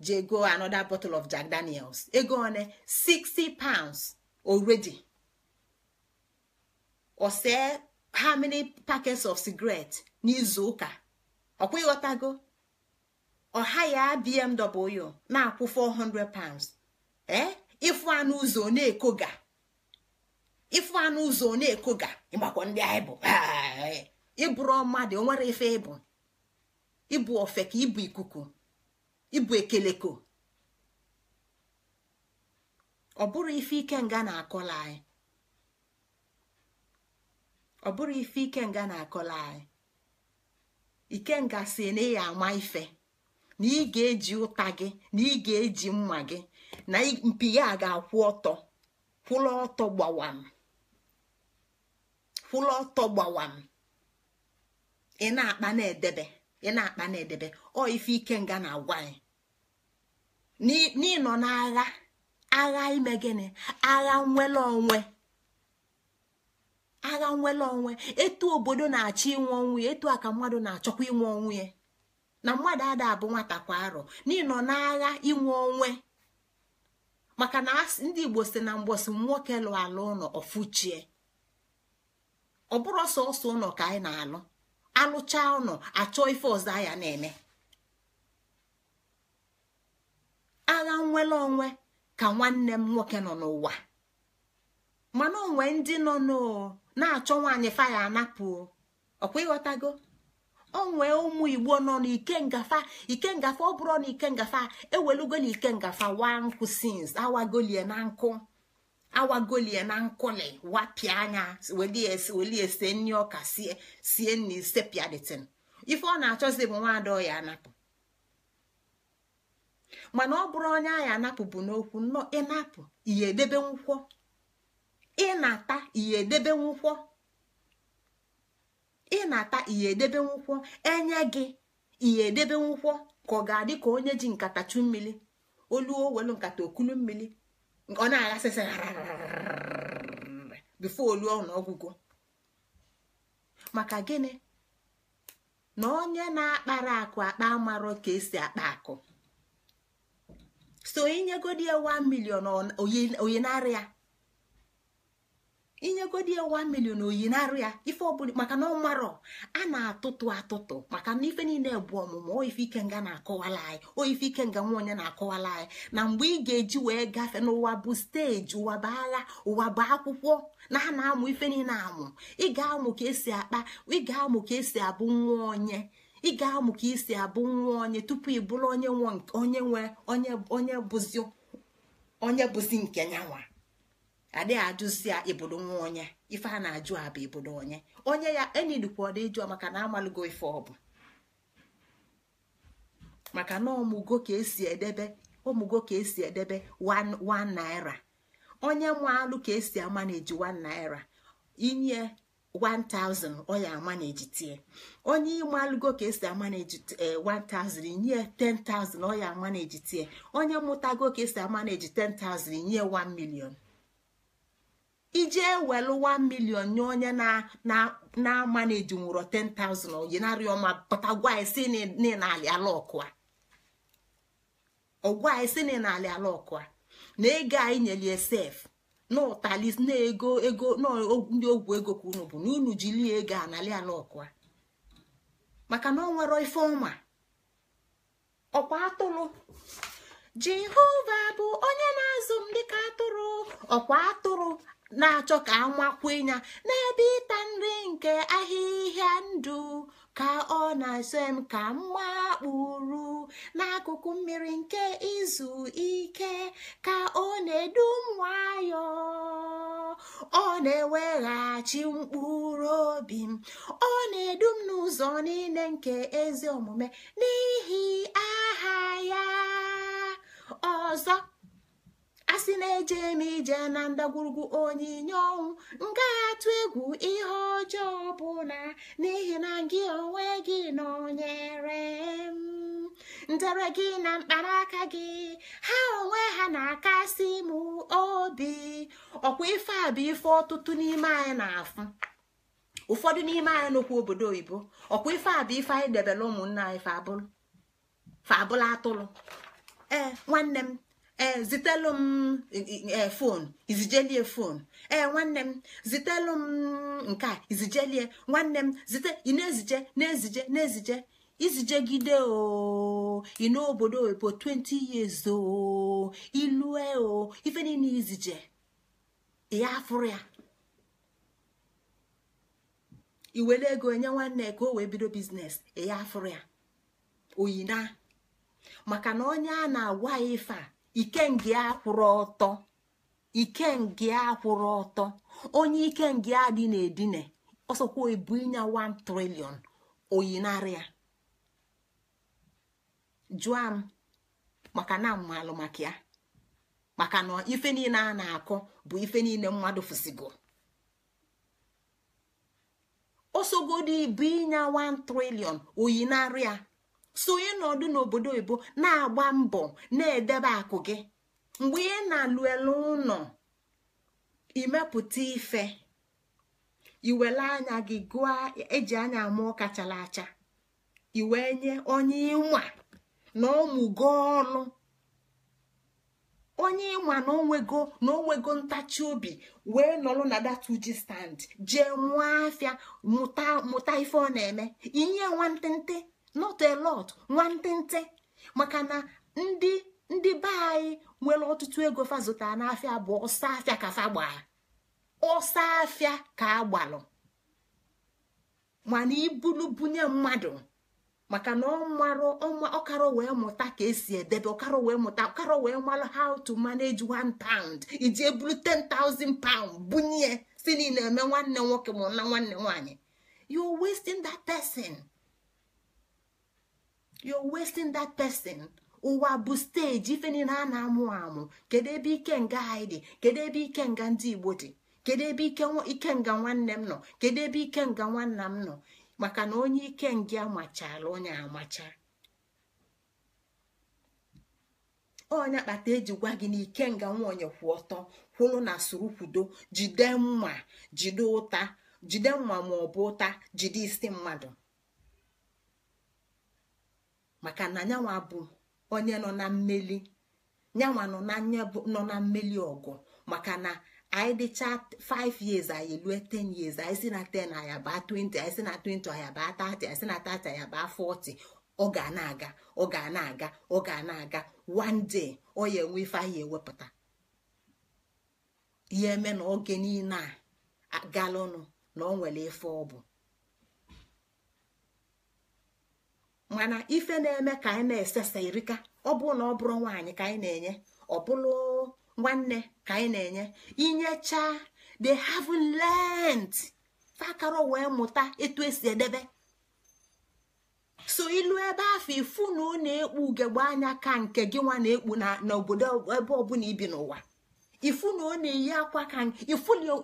je jego another bottle of Jack Daniels ego one 60 pounds already or see how many packets of cigarette n'izu ụka ọkwa ịghọtago ọha ya bmw na-akwụ 400 pounds ee eh? ịfụ anụ ụzọ na-ekoga ịfụ anụ ụzọ na-ekoga ịgbakọ ndị anyị bụ ịbụrụ mmadụ o nwere ife ịbụ ịbụ ofe ka ịbụ ikuku ịbụ ekeleko ọ bụrụ ife ike nga na-akọla anyị ọ bụrụ ife ike nga na-akọla anyị ikenga si na ama ife na ị ga-eji ụta gị na ị ga-eji mma gị na mpi ya ga-akwụ ọtọ kwụlọ ọtọ gbawam ọtọ gbawam ị na-akpa na-edebe ọ ife ikenga na-agwa anyị n'ịnọ n'agha agha ime gịnị agha nwere onwe agha nwere onwe etu obodo na-achọ inwe onwe ya etu a mmadụ na-achọkwa inwe onwe ya na mmadụ ada abụ nwata kwa arọ n'ịnọ n'agha inwe onwe maka na ndị igbo si na mgbọsị nwoke lụ ala ụlọ ọfụchie ọ bụrụ sọsọ ụlọ ka anyị na-alụ alụcha ụlọ achọ ife ọzọ ya na-eme agha nnwere onwe ka nwanne m nwoke nọ n'ụwa mana onwe ndị nọ na-achọ nwaanyị faya anapụ ọkwa ịghọtago onwe ụmụ igbo nọ n'ike ngafa ike ngafa ọ bụrụ na ike ngafa ewelugo na ike ngafa wa nkụ sins awagolie na nkụ awagolie na nkụli wapịa anya welie sie nri ọka sie sie nri sepịaditin ife ọ na-achọzi bụ nwa ọ ya anapụ mana ọ bụrụ onye anyị anapụpụ n'okwu nnọọ ịnapụ ihe edebe nkwọ ịnata ihe edebe nkwọ ịnata ihe edebe nkwọ enye gị ihe edebe nkwọ ka ọ ga-adị ka onye ji nkata chụ mmiri olu owelu nkata okulu mmiri ọ na-aghasịsị bifo olu ọnụọgwụgwọ maka gịnị na onye na-akpara akụ akpa amarọ ka esi akpa akụ so inyegodi ya 1 million oyinarị ya inyegodi million oyinarị ya ife ọbụla maka na ọ a na-atụtụ atụtụ maka na ife niile bụ ọmụmụ oyife ike nga na-akọwala anyị oyife ike nga nwa onye na-akọwala anyị na mgbe ị ga-eji wee gafee n'ụwa bụ steji ụwa bụ agha ụwa bụ akwụkwọ na a na-amụ ife niile amụ ị ga-amụ ka esi akpa ị ga-amụ ka esi abụ nwa onye ị ga-amụ ka isi abụ nwa onye tupu ị bụrụ onye onye nwe onye bụzi onye bụzi nke nyanwa adịghị ajụzi ya ibodo nwa onye ife a na-ajụ abụ ibodo onye onye ya enidikwa dị jụọ maka na amalụgo ife ọ bụ maka na ọmụgo ka esi edebe ọmụgo ka esi edebe 1 naira onye alụ ka esi ama na eji 1 naira inye 1000 ọ ya ejitie onye ịmalụgo ka esi amaneji 1000 eh, nye 10000 ọ ya ejitie onye mụtago ka esi eji 10000 nye 1 million ije welu 1 million nye onye na eji nwụrọ 10000 oyinarị ọma pụtagwa isi n'ịnalị ala ọkụa ọgwa isi n'ịnalị ala ọkụa na ego anyị nyelie sef na na ego ego na ndị ogwu ego ka unu bụ na unu jili ego anali ọkwa. maka na ọ nwere ife ọma ọkwa atụrụ jehova bụ onye na-azụ m dịka atụrụ ọkwa atụrụ na-achọ ka amakwunya n'ebe ịta nri nke ahịhịa ndụ ka ọ na-asọ m ka m gbakpuru n'akụkụ mmiri nke izu ike ka ọ na-edu m ọ na-eweghachi mkpụrụ obi m ọ na-edu m n'ụzọ niile nke ezi omume n'ihi aha ya ọzọ a sị na-eje m ije na ndagwurugwu onyinye ọnwụ nga atụ egwu ihe ọjọọ bụ na n'ihi na gị onwe gị nọnyere m ndere gị na mkpanaka gị ha onwe ha na-akasị m obi ọkwa ife a bụ ife ọtụtụ n'ime anyị na-afụ ụfọdụ n'ime anyị n'okwu obodo oyibo ọkwa ife a bụ ife anyị debere ụmụnna anyị fabụlụ atụrụ ee nwanne m ee eh, zitelụ m fonu eh, eh, izijelie fon ee nwanne m zitelụ m nke a izijelie nwanne m zite ị na-ezije na-ezije na-ezije izijegide oh, o obodo oyibo 20 years ooo oh, ilue o oh, ife niile izije ya afụrụ ya iwere ego enye nwanne ka o wee bido biznes ya afụrụ ya oyina maka na onye a na-agwa ya ife a ikenge akwụrụ ọtọ ikenge akwụrụ ọtọ onye ikenge adị na-edine ọsọkwa ebu ịnya 1 trilion oyinarịa jụọ m maka na mmalụ maka ya maka na ife niile a na-akọ bụ ife niile mmadụ fụsigo ọsọgodi bụ ịnya 1 trilion oyinarịa sonye n'ọdụ n'obodo oyibo na-agba mbọ na-edebe akụ gị mgbe ị na-alụ elu ụlọ imepụta ife iwele anya gị gụọ eji anya mụọ ụka chara acha iwe nye onye ịnwa na gọọ ọnụ onye ịnwa na onwego na onwego ntachi obi wee nọrọ na uji stand jee mụọ afịa mụta ife ọ na-eme inye nwantịntị not a lot nwantịntị maka na ndị ndị be anyị nwere ọtụtụ ego fa zụtara n'afịa bụ ọsọ afịa ka fa gbaa ọsọ afịa ka agbalụ mana ibulu bunye mmadụ maka na ọkara wee mụta ka esi edebe ọkara wee mụta ọkara wee mara how to manage one pound iji eburu 10,000 pound bunye si niile eme nwanne nwoke ma na nwanne nwaanyị you wasting that person. you're wasting that person ụwa bụ steji ife niile a na-amụ amụ kedu ebe ike nga anyị dị kedu ebe ike nga ndị igbo dị kedu ebe ike nga nwanne m nọ kedu ebe ike nga nwanna m nọ maka na onye ike nga amachala onye amacha onye kpata eji gwa gị na ikenga nwaonye kwụ ọtọ kwụrụ na soro kwudo jide mma jide ụta jide mma ma ọ bụ ụta jide isi mmadụ maka na nyanwa bụ onye nọ na mmeli nyanwa nọ na mmeli ọgụ maka na anyị dịcha 5 years anyị lue 10 years anyị si na 10 aya baa 20 anyị si na 20 aya baa 30 anyị si na 30 aya baa 40 ọ ga na-aga ọ ga na-aga ọ ga na-aga one day ọ ya enwe ife ewepụta ya eme na oge niile a galụnụ na ọ nwere ife ọ bụ mana ife na-eme ka anyị na-esesa erika ọ bụ na ọ bụrụ nwaanyị ka anyị na-enye ọ bụrụ nwanne ka anyị na-enye inyecha the have learned fakaro wee mụta etu esi edebe so ilu ebe afọ ifu na ọ na-ekpu ugegbe anya ka nke gị nwa na-ekpu n'obodo ebe ọbụla ibi n'ụwa ifu na ọ na-eyi akwa ka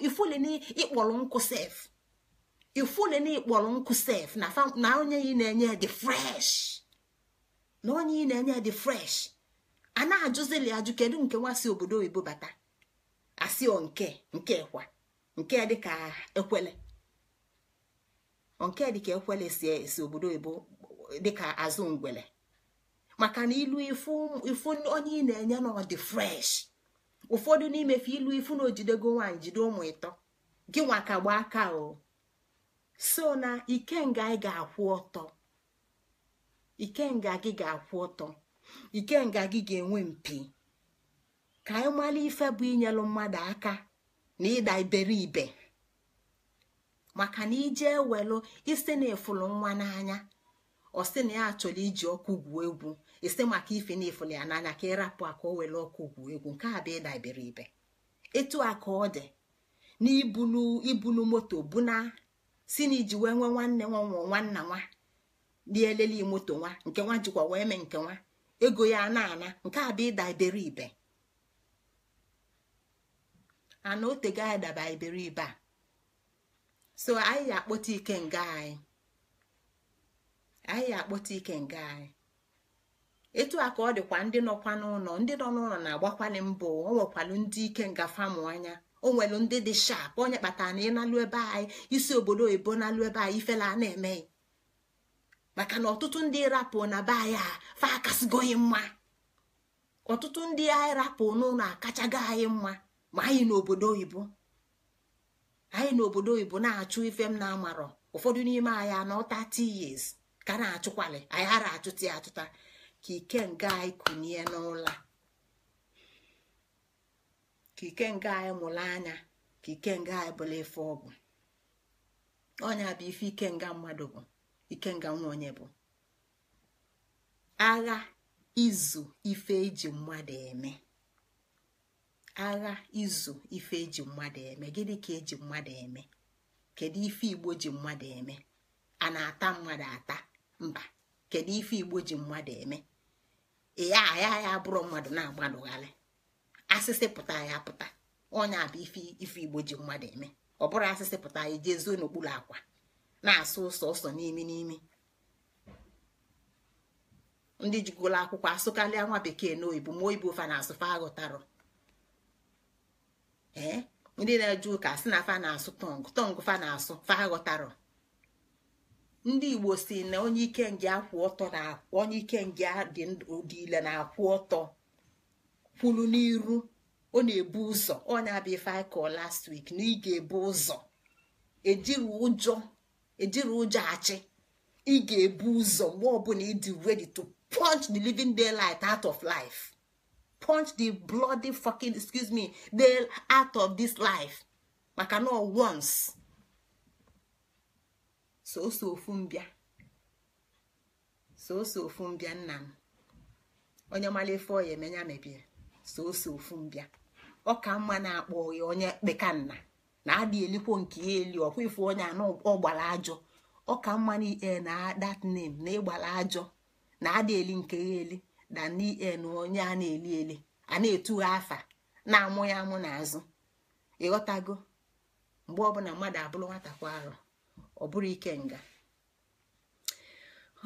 ifuli na ịkpọrọ nkụ sef le na ịkpọrọ nkụ sef na onye ị na-enye dị fresh na onye ị na-enye dị fresh a na-ajụzili ajụ kedu nke nwa si obodo oyibo bata asị o nke nke nke dịka ekwele eh, ekwele eh, si obodo oyibo dịka azụ ngwele maka na ilu ifu onye ị na-enye na ọ dị fresh ụfọdụ n'imefe ilu ifu na ojidego nwaanyị jide ụmụ ịtọ gị nwa ka gbaa aka o oh. so na ikenga ị ga-akwụ ọtọ ikenga gị ga-akwụ ọtọ ikenga gị ga-enwe mpi ka anyị mara ife bụ inyelu mmadụ aka na ịda iberibe maka na ije welu isi na efulu nwa n'anya ọsị na ya achọrọ iji ọkụ gwuo egwu isi maka ife na efulu ya n'anya ka ịrapụ aka o were ọkụ gwuo egwu nke a ịda iberibe etu a ka ọ dị n'ibulu ibunu moto na. si na iji wee nwee nwanne nwa nwụọ nwanna nwa lieleli moto nwa nke nwa jikwa wee mee nke nwa ego ya na-ana nke a bụ ịda iberibe ana otego anyị daba iberibe a so anyị akpọta ike nga anyị anyị akpọta ike nga anyị etu a ka ọ dịkwa ndị nọkwa n'ụlọ ndị nọ n'ụlọ na-agbakwali mbụ o nwekwalu ndị ike nga famụ anya o ndị dị shap onye kpatara na ịnalụ ebe anyị isi obodo oyibo nalụ ebe anyị ifela a na-emeghị maka na ọtụtụ ndị rapụ na be anyị a fa mma ọtụtụ ndị anyị rapụ n'ụlọ akachago anyị mma ma anyị n'obodo oyibo anyị n'obodo oyibo na-achụ ife m na-amarọ ụfọdụ n'ime anyị a nọta years ka na-achụkwalị anyị ara achụta achụta ka ike nga anyị kunie n'ụlọ ka ikenga anyị mụrụ anya ka ikenga anyị bụla ife ọgwụ ọnya bụ ife ikenga mmadụ bụ ikenga nwa onye bụ agha izu ife eji mmadụ eme agha izu ife eji mmadụ eme gịnị ka eji mmadụ eme kedu ife igbo ji mmadụ eme a na-ata mmadụ ata mba kedu ife igbo ji mmadụ eme ee aha ya mmadụ na-agbalụgharị asịsị pụta ya pụta onye abụ bụ ife igbo ji mmadụ eme ọ bụrụ asịsị pụta ya jee zuo n'okpuru akwa na-asụ ụsọ ụsọ n'imi n'imi ndị jigolo akwụkwọ asụkarịa nwa bekee na oyibo ma oyibo fa na-asụ fa aghọtarọ ee ndị na-eje ụka si na fa na-asụ tọng, tọng fa na-asụ fa ndị igbo si na onye ike nge akwụ ọtọ na onye ike nge dị ile na-akwụ ọtọ kwuru n'iru ọ na-ebu ụzọ ọ na-abịa ife last week na ị ga-ebu ụzọ ejiri ụjọ ejiri ụjọ achị ị ga-ebu ụzọ mgbe ọbụla ịdị ready to punch the living daylight out of life punch the bloody fucking excuse me day out of this life maka na once soso ofu mbịa soso ofu mbịa nna m onye mara ife ọya emenya mebie so ose ofu mbịa ọka mma na-akpọ ya onye kpekanna na adị elikwo nke ya eli ọkwa ifu onye anọ ọgbara ajọ ọka mma na ie eh, na that na ịgbara ajọ na adị eli nke ya eli na n'ie eh, na onye a na-eli eli a na-etugha afa na-amụ ya amụ n'azụ ịghọtago mgbe ọbụla mmadụ abụrụ nwata kwa ọ bụrụ ike nga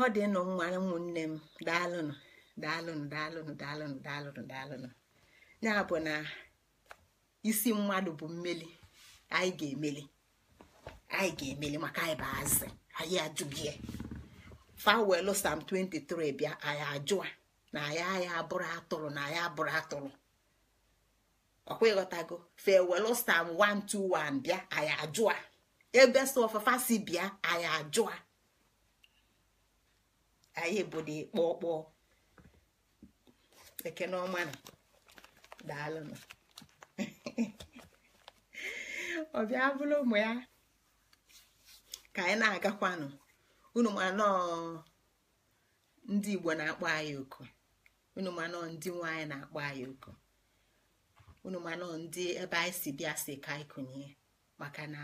ọ dị nụ nwa ụmụnne m daalụnụ daalụnụ daalụnụ daalụnụ daalụnụ daalụnụ ya bụ na isi mmadụ bụ mmeli anyị ga-emeli anyị ga-emeli maka anyị bụ azị anyị ajụghị fawelụ sam 23 bịa anyị ajụa na anyị anyị abụrụ atụrụ na anyị abụrụ atụrụ ọkwa ịghọtago fewelụ sam 121 bịa anyị ajụa ebe so ọfafa si bịa anyị ajụa anyị bụ dị kpọkpọọ ekene ọma daalụnụ ọ bịa bụrụ ụmụ ya ka anyị na-agakwanụ unu manọ ndị igbo na-akpọ anyị oku unu manọ ndị nwaanyị na-akpọ anyị oku unu manọ ndị ebe anyị si bịa si ka anyị kụnye maka na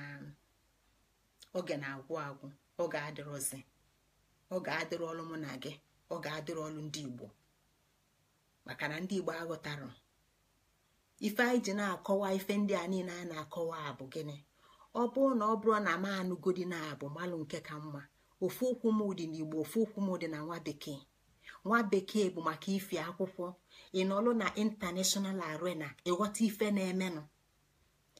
oge na-agwụ agwụ oge adịrọzi oge adịrọlụ mụ na gị oge adịrọlụ ndị igbo maka na ndị igbo aghọtarụ ife anyị ji na-akọwa ife ndị a niile a na-akọwa abụ gịnị ọ bụrụ na ọ bụrụ na m anụgodi na abụ malụ nke ka mma ofu okwu m dị n'igbo ofu okwu m dị na nwa bekee nwa bekee bụ maka ife akwụkwọ ị nọlụ na international arena ịghọta ife na-emenụ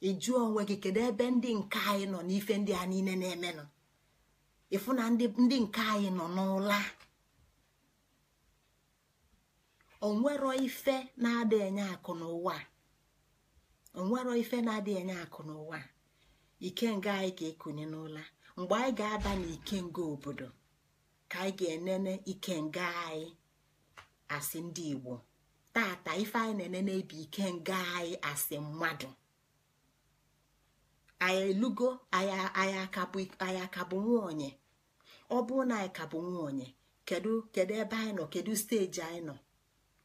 ịjụọ onwe gị kedu ebe ndị nke anyị nọ n'ife ndị a niile na-emenụ ịfụ na ndị nke anyị nọ n'ụla onwero ife na-ada enye akụ n'ụwa onwero ife na-adịghị enye akụ n'ụwa ikenga anyị ka ekunye n'ụla mgbe anyị ga-aba n'ikenga obodo ka anyị ga-enene ikenga anyị asị ndị Igbo tata ife anyị na-enene bụ ikenga anyị asị mmadụ anyị elugo anyị akabụ nwunye ọ bụrụ na anyị kabụ nwunye kedu kedu ebe anyị nọ kedu steji anyị nọ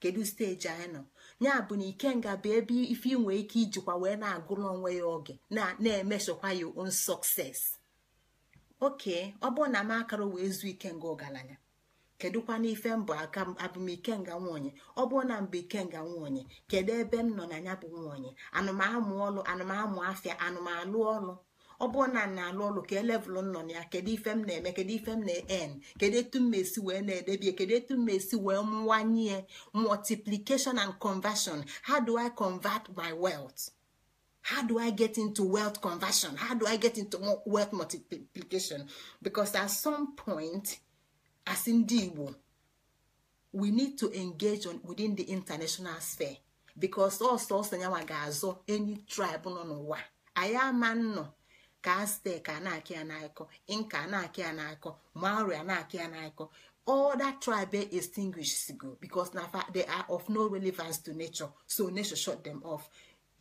kedu steji anyị nọ ya bụ na ikenga bụ ebe ife inwe ike ijikwa wee na-agụrụ onwe ya oge na-emesokwa ya on sọkses oke ọ bụrụ na m akara wee zuo ikenga ọgaranya kedụkwa n'ife mbụ aka abụm ikenga nwanyị ọ bụrụ na mbụ ikenga nwanyị kedu ebe m nọ na ya bụ nwanyị anụmamụ ọlụ anụmamụ afịa anụmalụ ọlụ ọ bụrụ na na-alụ ọlụ ka elevụl nọ na ya kedu ife m na-eme kedu ife m na-en kedu etu m esi wee na-edebie kedu etu m esi wee mwanye multiplication and conversion how do i convert my wealth how do i get into wealth conversion how do i get into wealth multiplication because at some point as ndị Igbo we need to engage on within the international sphere because ọsọsọ nyanwa ga azụ any tribe nọ n'ụwa anyị ama nnọọ ka aztek a na-akị ya n'akọ inka na-akị ya n'akọ maori a na-akị ya n'akọ all tribe extinguishes go because na they are of no relevance to nature so nature shut them off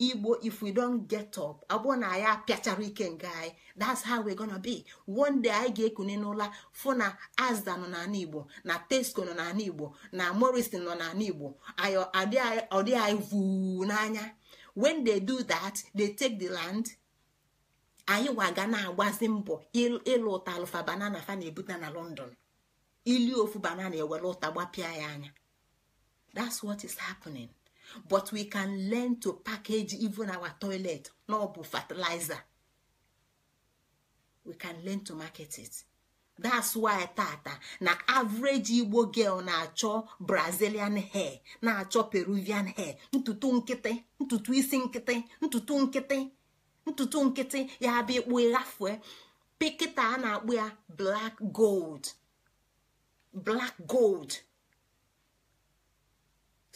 igbo if we don get up abụọ na ya piachara ike nga anyị that's how we gonna be one day anyị ga ekunye n'ụla fụ na azda nọ n'ala igbo na tesco nọ n'ala igbo na morrison nọ n'ala igbo ọ anyị vuu n'anya when they do that they take the land anyị waga na-agbazi mbọ ịlụ ụta alụfa banana fa na-ebute na london ili ofu banana ewere ụta gbapịa ya anya that's what is happening but we can learn to package even our toilet na ọ bụ fertilizer we can learn to market it that's why tata na average igbo girl na-achọ brazilian hair na-achọ peruvian hair ntutu nkịtị ntutu isi nkịtị ntutu nkịtị ntutu nkịtị ya abịa ekpu ghafue pikịta a na-akpụ ya black gold black gold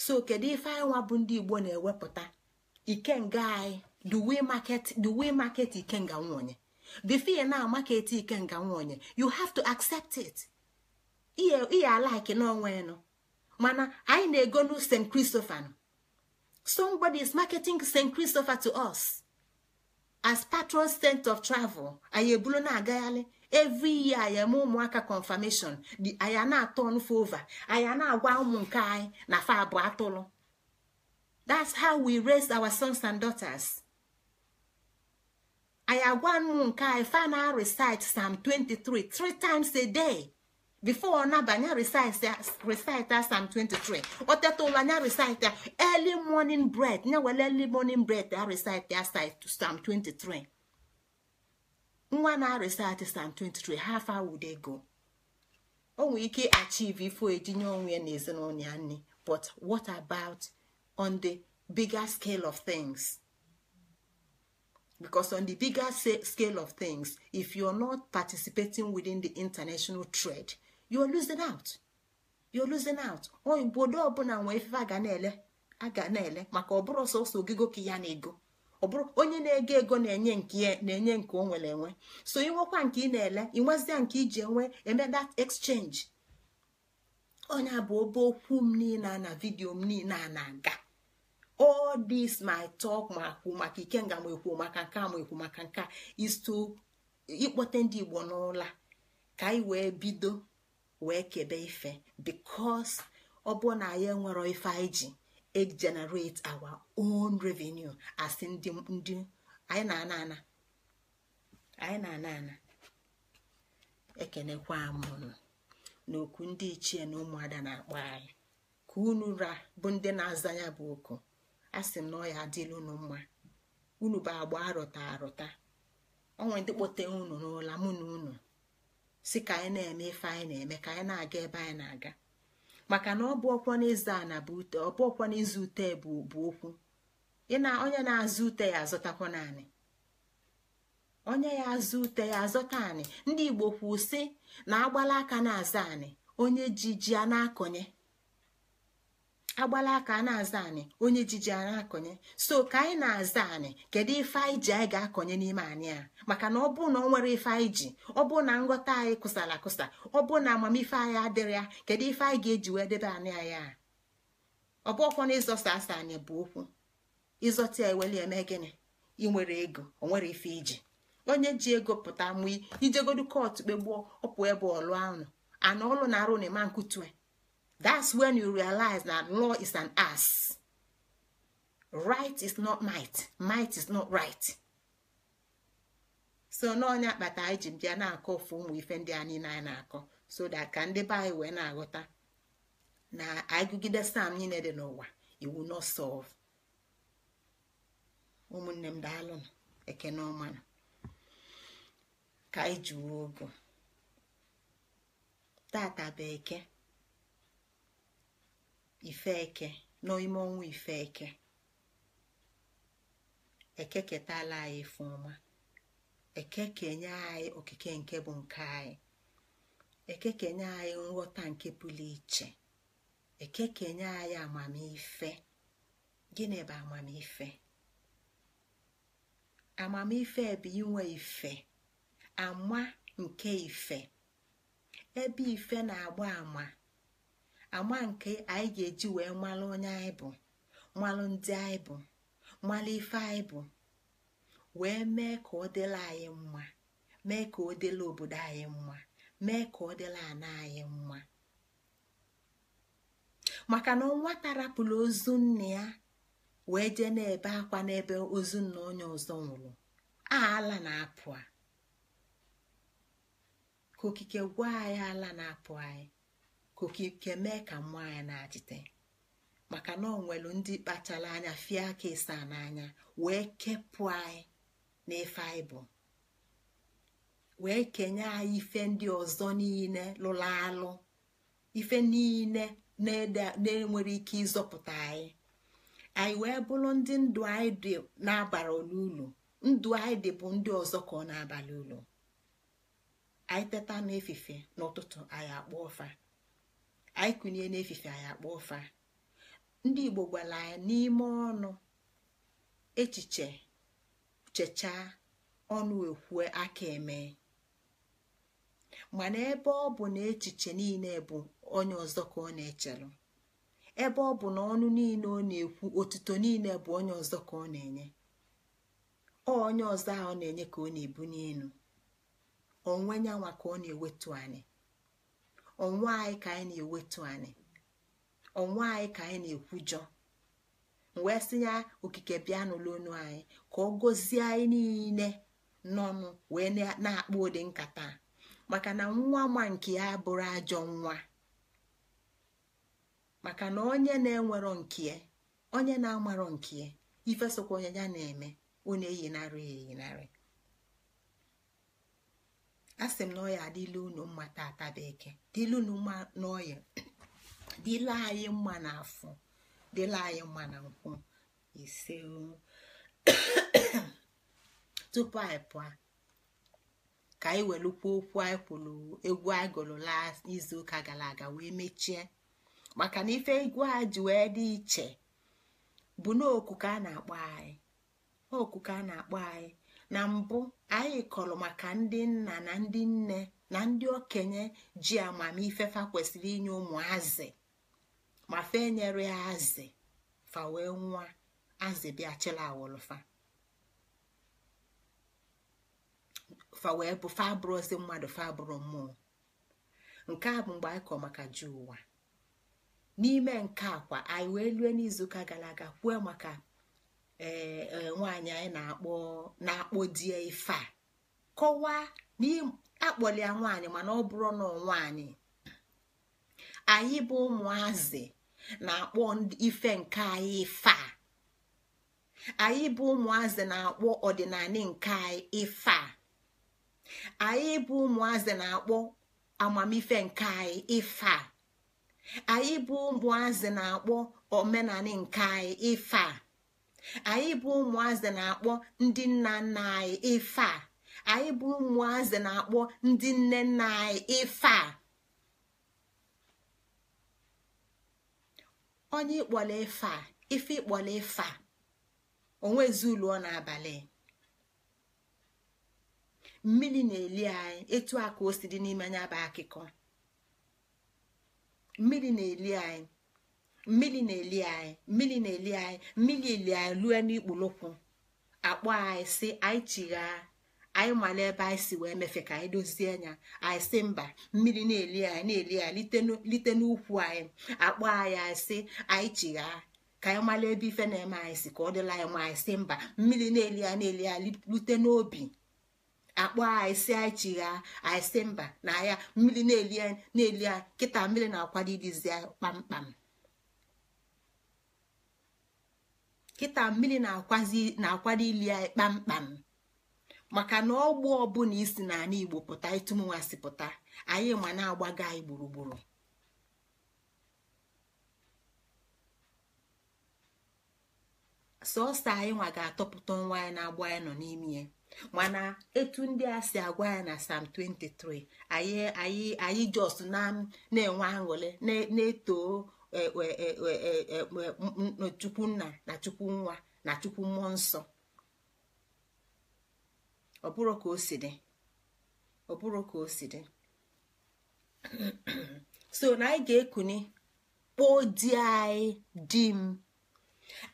so kedu ife anyị bụ ndị igbo na-ewepụta ikenga anyị the way market the way market ikenga nwonye fear na market ikenga nwonye you have to accept it ihe alike n'onwe enu mana anyị na-ego nu st christopher somebody is marketing st christopher to us. as patron saint of travel anyị na-agagharị every year anyị eme ụmụaka confirmation di anyị na-atọ over anyị na-agwa ụmụ nke anyị na fa bụ atụrụ that's how we raise our sons and daughters anyị agwa ụmụ nke anyị fa na recite psalm 23 three times a day. before nabanya recite Psalm 23 ọ teta ụla recite early morning bread nya were early morning bread ya recite sam 23 nwa na recite sam 23 half hour dey go o nwere ike achieve ifo ejinye onwe ya na ezinụlọ ya nne but what about on the bigger scale of things because on the bigger scale of things if you are not participating within the international trade you losing out you losing out obodo ọbụla nwee ife a ga na-ele a ga na-ele maka ọbụrụ sọsọ ogige ka ya na ego ọ bụrụ onye na-ego ego na-enye nke na-enye nke o nwere enwe so inwekwa nke ị na-ele inwezia nke iji enwe eme that exchange onye bụ obe okwu m niile na vidiyo m niile na-aga all this my talk ma kwu maka ike ma ekwu maka nke a ma ekwu maka nke a is to ịkpọte ndị Igbo n'ụla ka anyị wee bido wee kebe ife bikos ọ bụ na anyị enwero ife anyị ji egenerate our own revenue as ndị ndị anyị na-ana ana anyị na-ana ana ekenekwa m na n'okwu ndị ichie na ụmụada na-akpọ anyị ka unu ra bụ ndị na-aza ya bụ oku a sị m na ya adịla unu mma unu bụ agba arụta arụta onwe ndị kpọte unu n'ụla mụ na unu si ka anyị na-eme ife anyị na-eme ka anyị na-aga ebe anyị na-aga maka na ọ bụ ọkwọ ute ọ ọkwọ n'ịzụ ute bụ okwu na onye na-azụ ute ya azụtakwa naanị onye ya azụ ute ya azụta anị ndị igbo kwụ sị na agbala aka na-aza anị onye ji ji a na-akọnye agbala aka a na-aza anyị onye jiji a na-akọnye so ka anyị na-aza anyị kedu ife anyị ji anyị ga-akọnye n'ime anyị a maka na ọ bụ na ọ nwere ife anyị ji ọ bụ na nghọta anyị kụsara akụsa ọ bụ na amamife anyị adịrị ya kedu ife anyị ga-eji wee debe anyị a ọ bụ ọkwa na ịzọsa asa bụ okwu ịzọta ya eweli eme gịnị ị nwere ego ọ nwere ife iji onye ji ego pụta mụ ijegodu kọọtụ kpegbuo ọpụ ebe ọlụ anụ ana ọlụ na arụ na ịma nkutue that's when you realize that law is an ass right is not might might is not right so n'ọnya akpata anyị ji bịa na-akọ ofu ụmụ ife ndị anyị na-akọ so that ka ndị be anyị wee na-aghọta na agụgide sam niile dị n'ụwa iwu not solve ụmụnne m daalụnụ ekene ka anyị ji ogo tata bụ ifeke n'ime ọnwa ifeke ekeketala anyị fụma ọma ekekenye anyị okike nke bụ nke anyị ekekenye anyị nghọta nke pụrụ iche ekekenye anyị amamife gịnị bụ amamife amamife bụ inwe ife ama nke ife ebe ife na-agba ama ama nke anyị ga-eji wee malụ onye anyị bụ malụ ndị anyị bụ malụ ife anyị bụ wee mee ka ọ dịla anyị mma mee ka ọ dịla obodo anyị mma mee ka ọ dịla ana anyị mma maka na nwata tarapụla ozu nne ya wee jee na-ebe akwa n'ebe ozu nna onye ọzọ nwụrụ ala na-apụ a ka okike gwa anyị ala na-apụ anyị ka okike mee ka mmụọ anyị na-achịte maka na ọ nwelu ndị kpachara anya fie aka ịsa n'anya wee kepụ anyị n'ife anyị bụ wee kenye anyị ife ndị ọzọ niile lụrụ alụ ife niile na-enwere ike ịzọpụta anyị anyị wee bụrụ ndị ndụ anyị dị n'abalị ụlọ ndụ anyị dị bụ ndị ọzọ ka ọ na-abalị ụlọ anyị teta n'efife n'ụtụtụ anyị akpọ ụfa. anyị kụnye n'efife anyị akpọ ụfa ndị igbo gwara anyị n'ime ọnụ echiche chechaa ọnụ ekwue aka eme mana ebe ọ bụ na echiche niile bụ onye ọzọ ka ọ na-echelụ ebe ọ bụ na ọnụ niile ọ na-ekwu otuto niile bụ onye ọzọ ka ọ na-enye ọ onye ọzọ ahụ ọ na-enye ka ọ na-ebu n'elu onwe nwa ka ọ na-ewetu anyị ọnwa anyị ka anyị na-ewetu anyị ọnwa anyị ka anyị na-ekwujọ wee sinye okike bịa n'ụlọ onu anyị ka ọ gọzie anyị niile n'ọnụ wee na-akpọ ụdị nkata maka na nwa ma nke ya bụrụ ajọ nwa maka na onye na-enwero nke onye na-amarọ nke ifesokwa onye ya na-eme ọ na-eyinarị eyinarị asị m na ọya adịla unu mma tata bekee dịla unu mma n'ọya dịla anyị mma n'afọ dịla anyị mma na nkwụ ise tupu anyị pụọ ka anyị welụkwa okwu anyị kwụrụ egwu anyị gụrụ izuụka gara aga wee mechie maka na ife egwu a ji wee dị iche bụ n'oku ka a na-akpọ anyị a na-akpọ anyị na mbụ anyị kọrọ maka ndị nna na ndị nne na ndị okenye ji amamife fa kwesịrị inye ụmụ azị ma fe nyere ya azị fa wee nwa azị bịa chịla awụlụfa fa wee bụ fa mmadụ fa mmụọ nke a bụ mgbe anyị kọrọ maka ji ụwa n'ime nke kwa anyị wee lue n'izuụka gara aga kwue maka ee eh, eh, nwaanyị anyị na-akpọ na-akpọ die ife a kọwaa akpọlia nwaanyị mana ọ bụrụ na nwaanyị anyị bụ ụmụazị na-akpọ ife nke anyị ife a anyị bụ ụmụazị na-akpọ ọdịnala nke anyị ife a anyị bụ ụmụazị na-akpọ amamife nke anyị ife a anyị bụ ụmụazị na-akpọ omenala nke anyị ife a anyị bụ ụmụazị na-akpọ ndị nna nna anyị ife a anyị bụ ụmụazị na-akpọ ndị nne nna anyị ife a onye ịkpọla ife a ife ịkpọla ife a onwezi ụlọ n'abalị mmiri na-eli anyị etu a ka o si dị n'ime anya bụ akụkọ mmiri na-eli anyị mmiri na-eli anyị mmiri na-eli anyị mmiri eli anyị lue n'ikpulụkwụ akpọ anyị si anyị chigha anyị mara ebe anyị si wee mefe ka anyị dozie anya anyị si mba mmiri na-eli anyị na-eli anyị lite n'ukwu anyị akpọ anyị anyị si anyị chigha ka anyị mara ebe ife na-eme anyị si ka ọ dịla anyị ma anyị si mba mmiri na-eli anyị na-eli anyị lute n'obi akpọ anyị si anyị chigha anyị si mba na ya mmiri na-eli anyị na-eli anyị kịta mmiri na-akwado idizi anyị kpamkpam kịta mmiri na-akwado ili ya kpamkpam maka na ọgbụ ọbụla isi ana igbo pụta ịtụmụnwa si pụta anyị ma na agbago anyị gburugburu sọọsọ anyị nwa ga-atọpụta nwa ya na-agba ya nọ n'ime ya mana etu ndị a si agwa ya na sam 23 anyị anyị jos na enwe na-eto chukwu nna na chukwu nwa na chukwu mmụọ nsọ ọ bụrụ ka o si dị ọ ka o si dị so na anyị ga-ekuni kpoo di anyị di m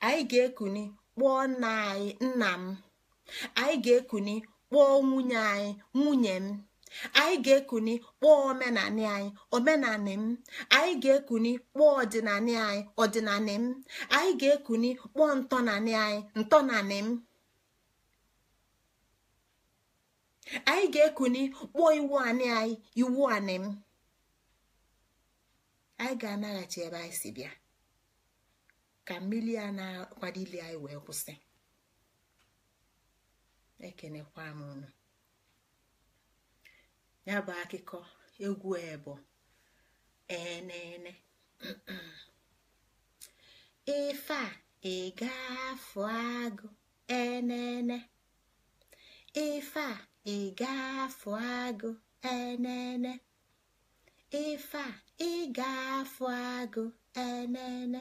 anyị ga-ekuni kpọọ nna anyị nna m anyị ga-ekuni kpọọ nwunye anyị nwunye m anyị ga-ekuni kpọọ omenanị anyị omenanị m anyị ga-ekuni kpọọ ọdịnanị anyị ọdịnanị m anyị ga-ekuni kpọọ ntọnanị anyị ntọnanị m anyị ga-ekuni kpọọ iwu anị anyị iwu anị m anyị ga-anaghachi ebe anyị si bịa ka mmiri a na akwadili anyị wee kwụsị ekenekwa m unu ya bụ akụkọ egwu ebo enene ife a ịgafu agụ enene ife a ịgafu agụ enene ife a ịgafu agụ enene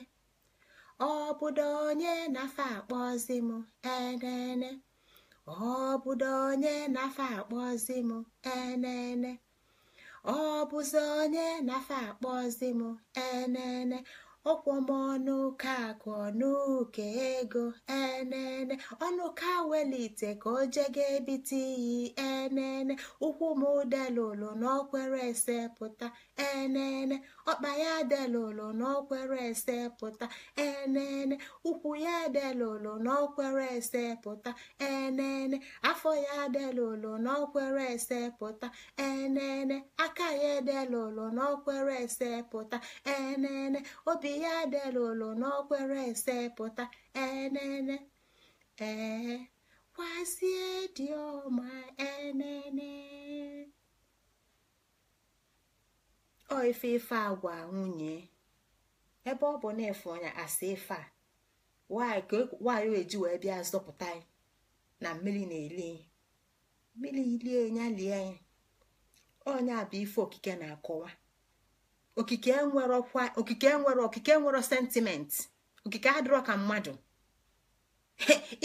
ọ bụdo onye na-afa akpọzi m enene ọ bụdo onye na akpọzi m enene ọ bụzi onye nafa akpọzi m enene ọkwụ m ọnụ ụka akụ ego enene ọnụ ka welite ka o jega ebite iyi enene ụkwụ m ụdelụlụ n'ọkwere ese pụta enene ọkpa ya delolo n'okwere ese pụta enene ụkwụ ya delolo n'okwere ese pụta enene afọ ya delolo n'okwere ese pụta enene aka ya delolo n'okwere ese pụta enene obi ya delolo n'okwere ese pụta enene ee kwasie dị ọma enene ọ ife ife agwa nwunye ebe ọ bụ na efe ọnya asị ife a nwaanyị e, eji wee bịa zọpụta na mmiri na-eli mmiri ilie ya lie anyị ọnya bụ ife okike na-akọwa okike nwere okike nwere sentiment okike adịrọ ka mmadụ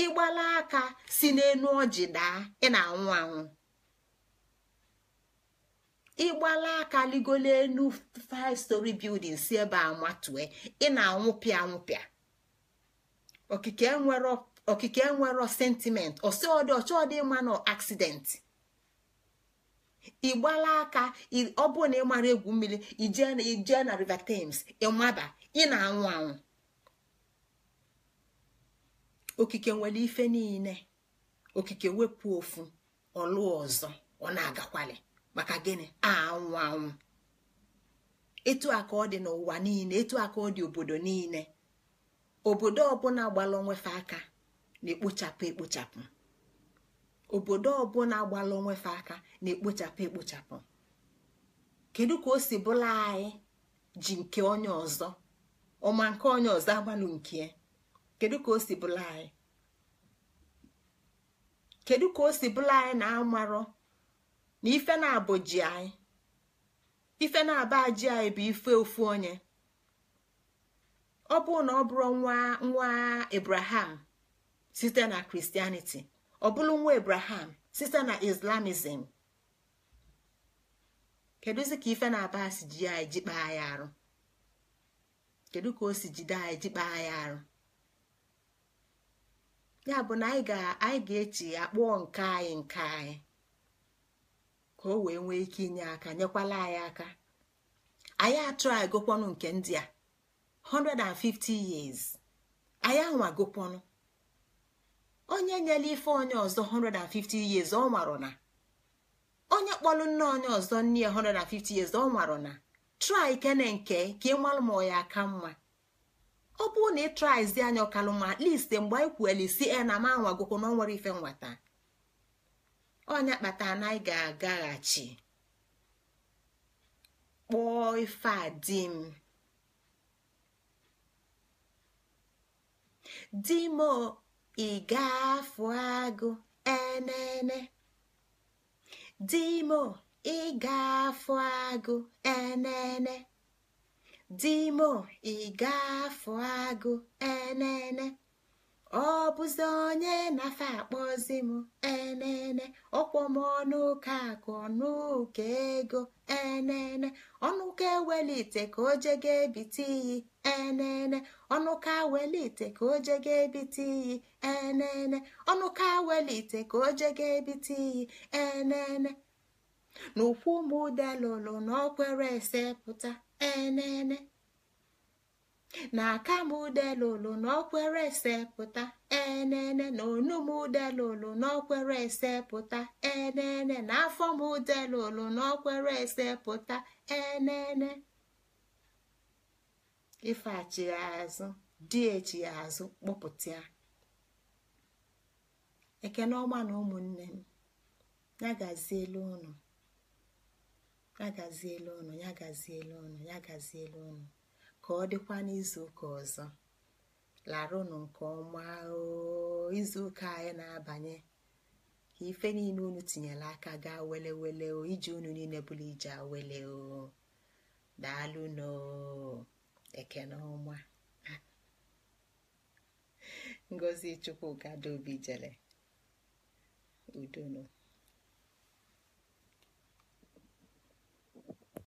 ịgbala aka si n'enu ọjị daa ị na-anwụ anwụ ịgbala aka ligolo elu 5 story building si ebe a matue ị na-anwụpịa anwụpịa okike enwero okike enwero sentiment ọsọdị ọchọdị ịma na accident ịgbala aka ọ bụrụ na ị mara egwu mmiri ijee na river thames ịmaba ị na-anwụ anwụ okike nwere ife niile okike wepụ ofu ọlụ ọzọ ọ na-agakwali maka gịnị anwụ anwụ etu aka ọ dị n'ụwa niile etu aka ọ dị obodo niile obodo ọbụla gbala onwefe aka na-ekpochapụ ekpochapụ obodo ọbụla gbala onwefe aka na-ekpochapụ ekpochapụ kedu ka o si bụla anyị ji nke onye ọzọ ọma nke onye ọzọ agbalụ nke kedu ka o si bụla anyị kedu ka o si bụla anyị na amarụ na ife na-abụ ji anyị ife na-aba ji anyị bụ ife ofu onye ọ bụ na ọ bụrụ nwa nwa Abraham site na kristianiti ọ bụrụ nwa Abraham site na Islamism kedụzi ka ife na-aba si ji anyị jikpa anyị arụ kedu ka o si jide anyị jikpa anyị arụ ya bụ na anyị ga-echi ya nke anyị nke anyị ka o wee nwee ike inye aka nyekwala anyị aka anyị atụrụ gụkwanụ nke ndị a 150 years anyị anwa gụkwanụ onye nyela ife onye ọzọ 150 years ọ nwarọ na onye kpọlụ nne onye ọzọ nne ya 150 years ọ nwarọ na trai kene nke ka ị malụ ma ọ ya aka mma ọ bụrụ na ị traizi anya ọkalụma ma mgbe anyị kwueli isi e na m anwagokwa na ọ nwere ife nwata onye kpatara na anyị ga-agaghachi kpụọ ife a di m di m ị ga-afụ agụ enene di m ị ga-afụ agụ enene di m ị ga-afụ agụ enene ọ bụzi onye na-afa akpọzi m enene ọkpọ m akụ ọnụka ego enene ọnụ ka ewelite ka o je ga ebite iyi enene ọnụ ka welite ka o je ga ebite iyi enene ọnụ ka welite ka o je ga ebite iyi enene n'ụkwụ na ọkwere ese pụta enene na akamụdelolo n'okwere ese pụta enene na onumudelolo n'okwere ese pụta enene na afọmụdelolo n'okwere ese pụta enene ife achigazụ dị echigazụ kpọpụta ya e na ụmụnne m ya gazielu ụnụ ya gazielu ụnụ ya gazielu ụnụ ya ụnụ ka ọ dịkwa n'izuụka ọzọ larụnụ nke ọma izuụka anyị na-abanye ka ife niile unu tinyere aka gaa wele wele o iji unu niile bụrụ ije awele o daalụ na ọma ngozi chukwu gado obi jele udonu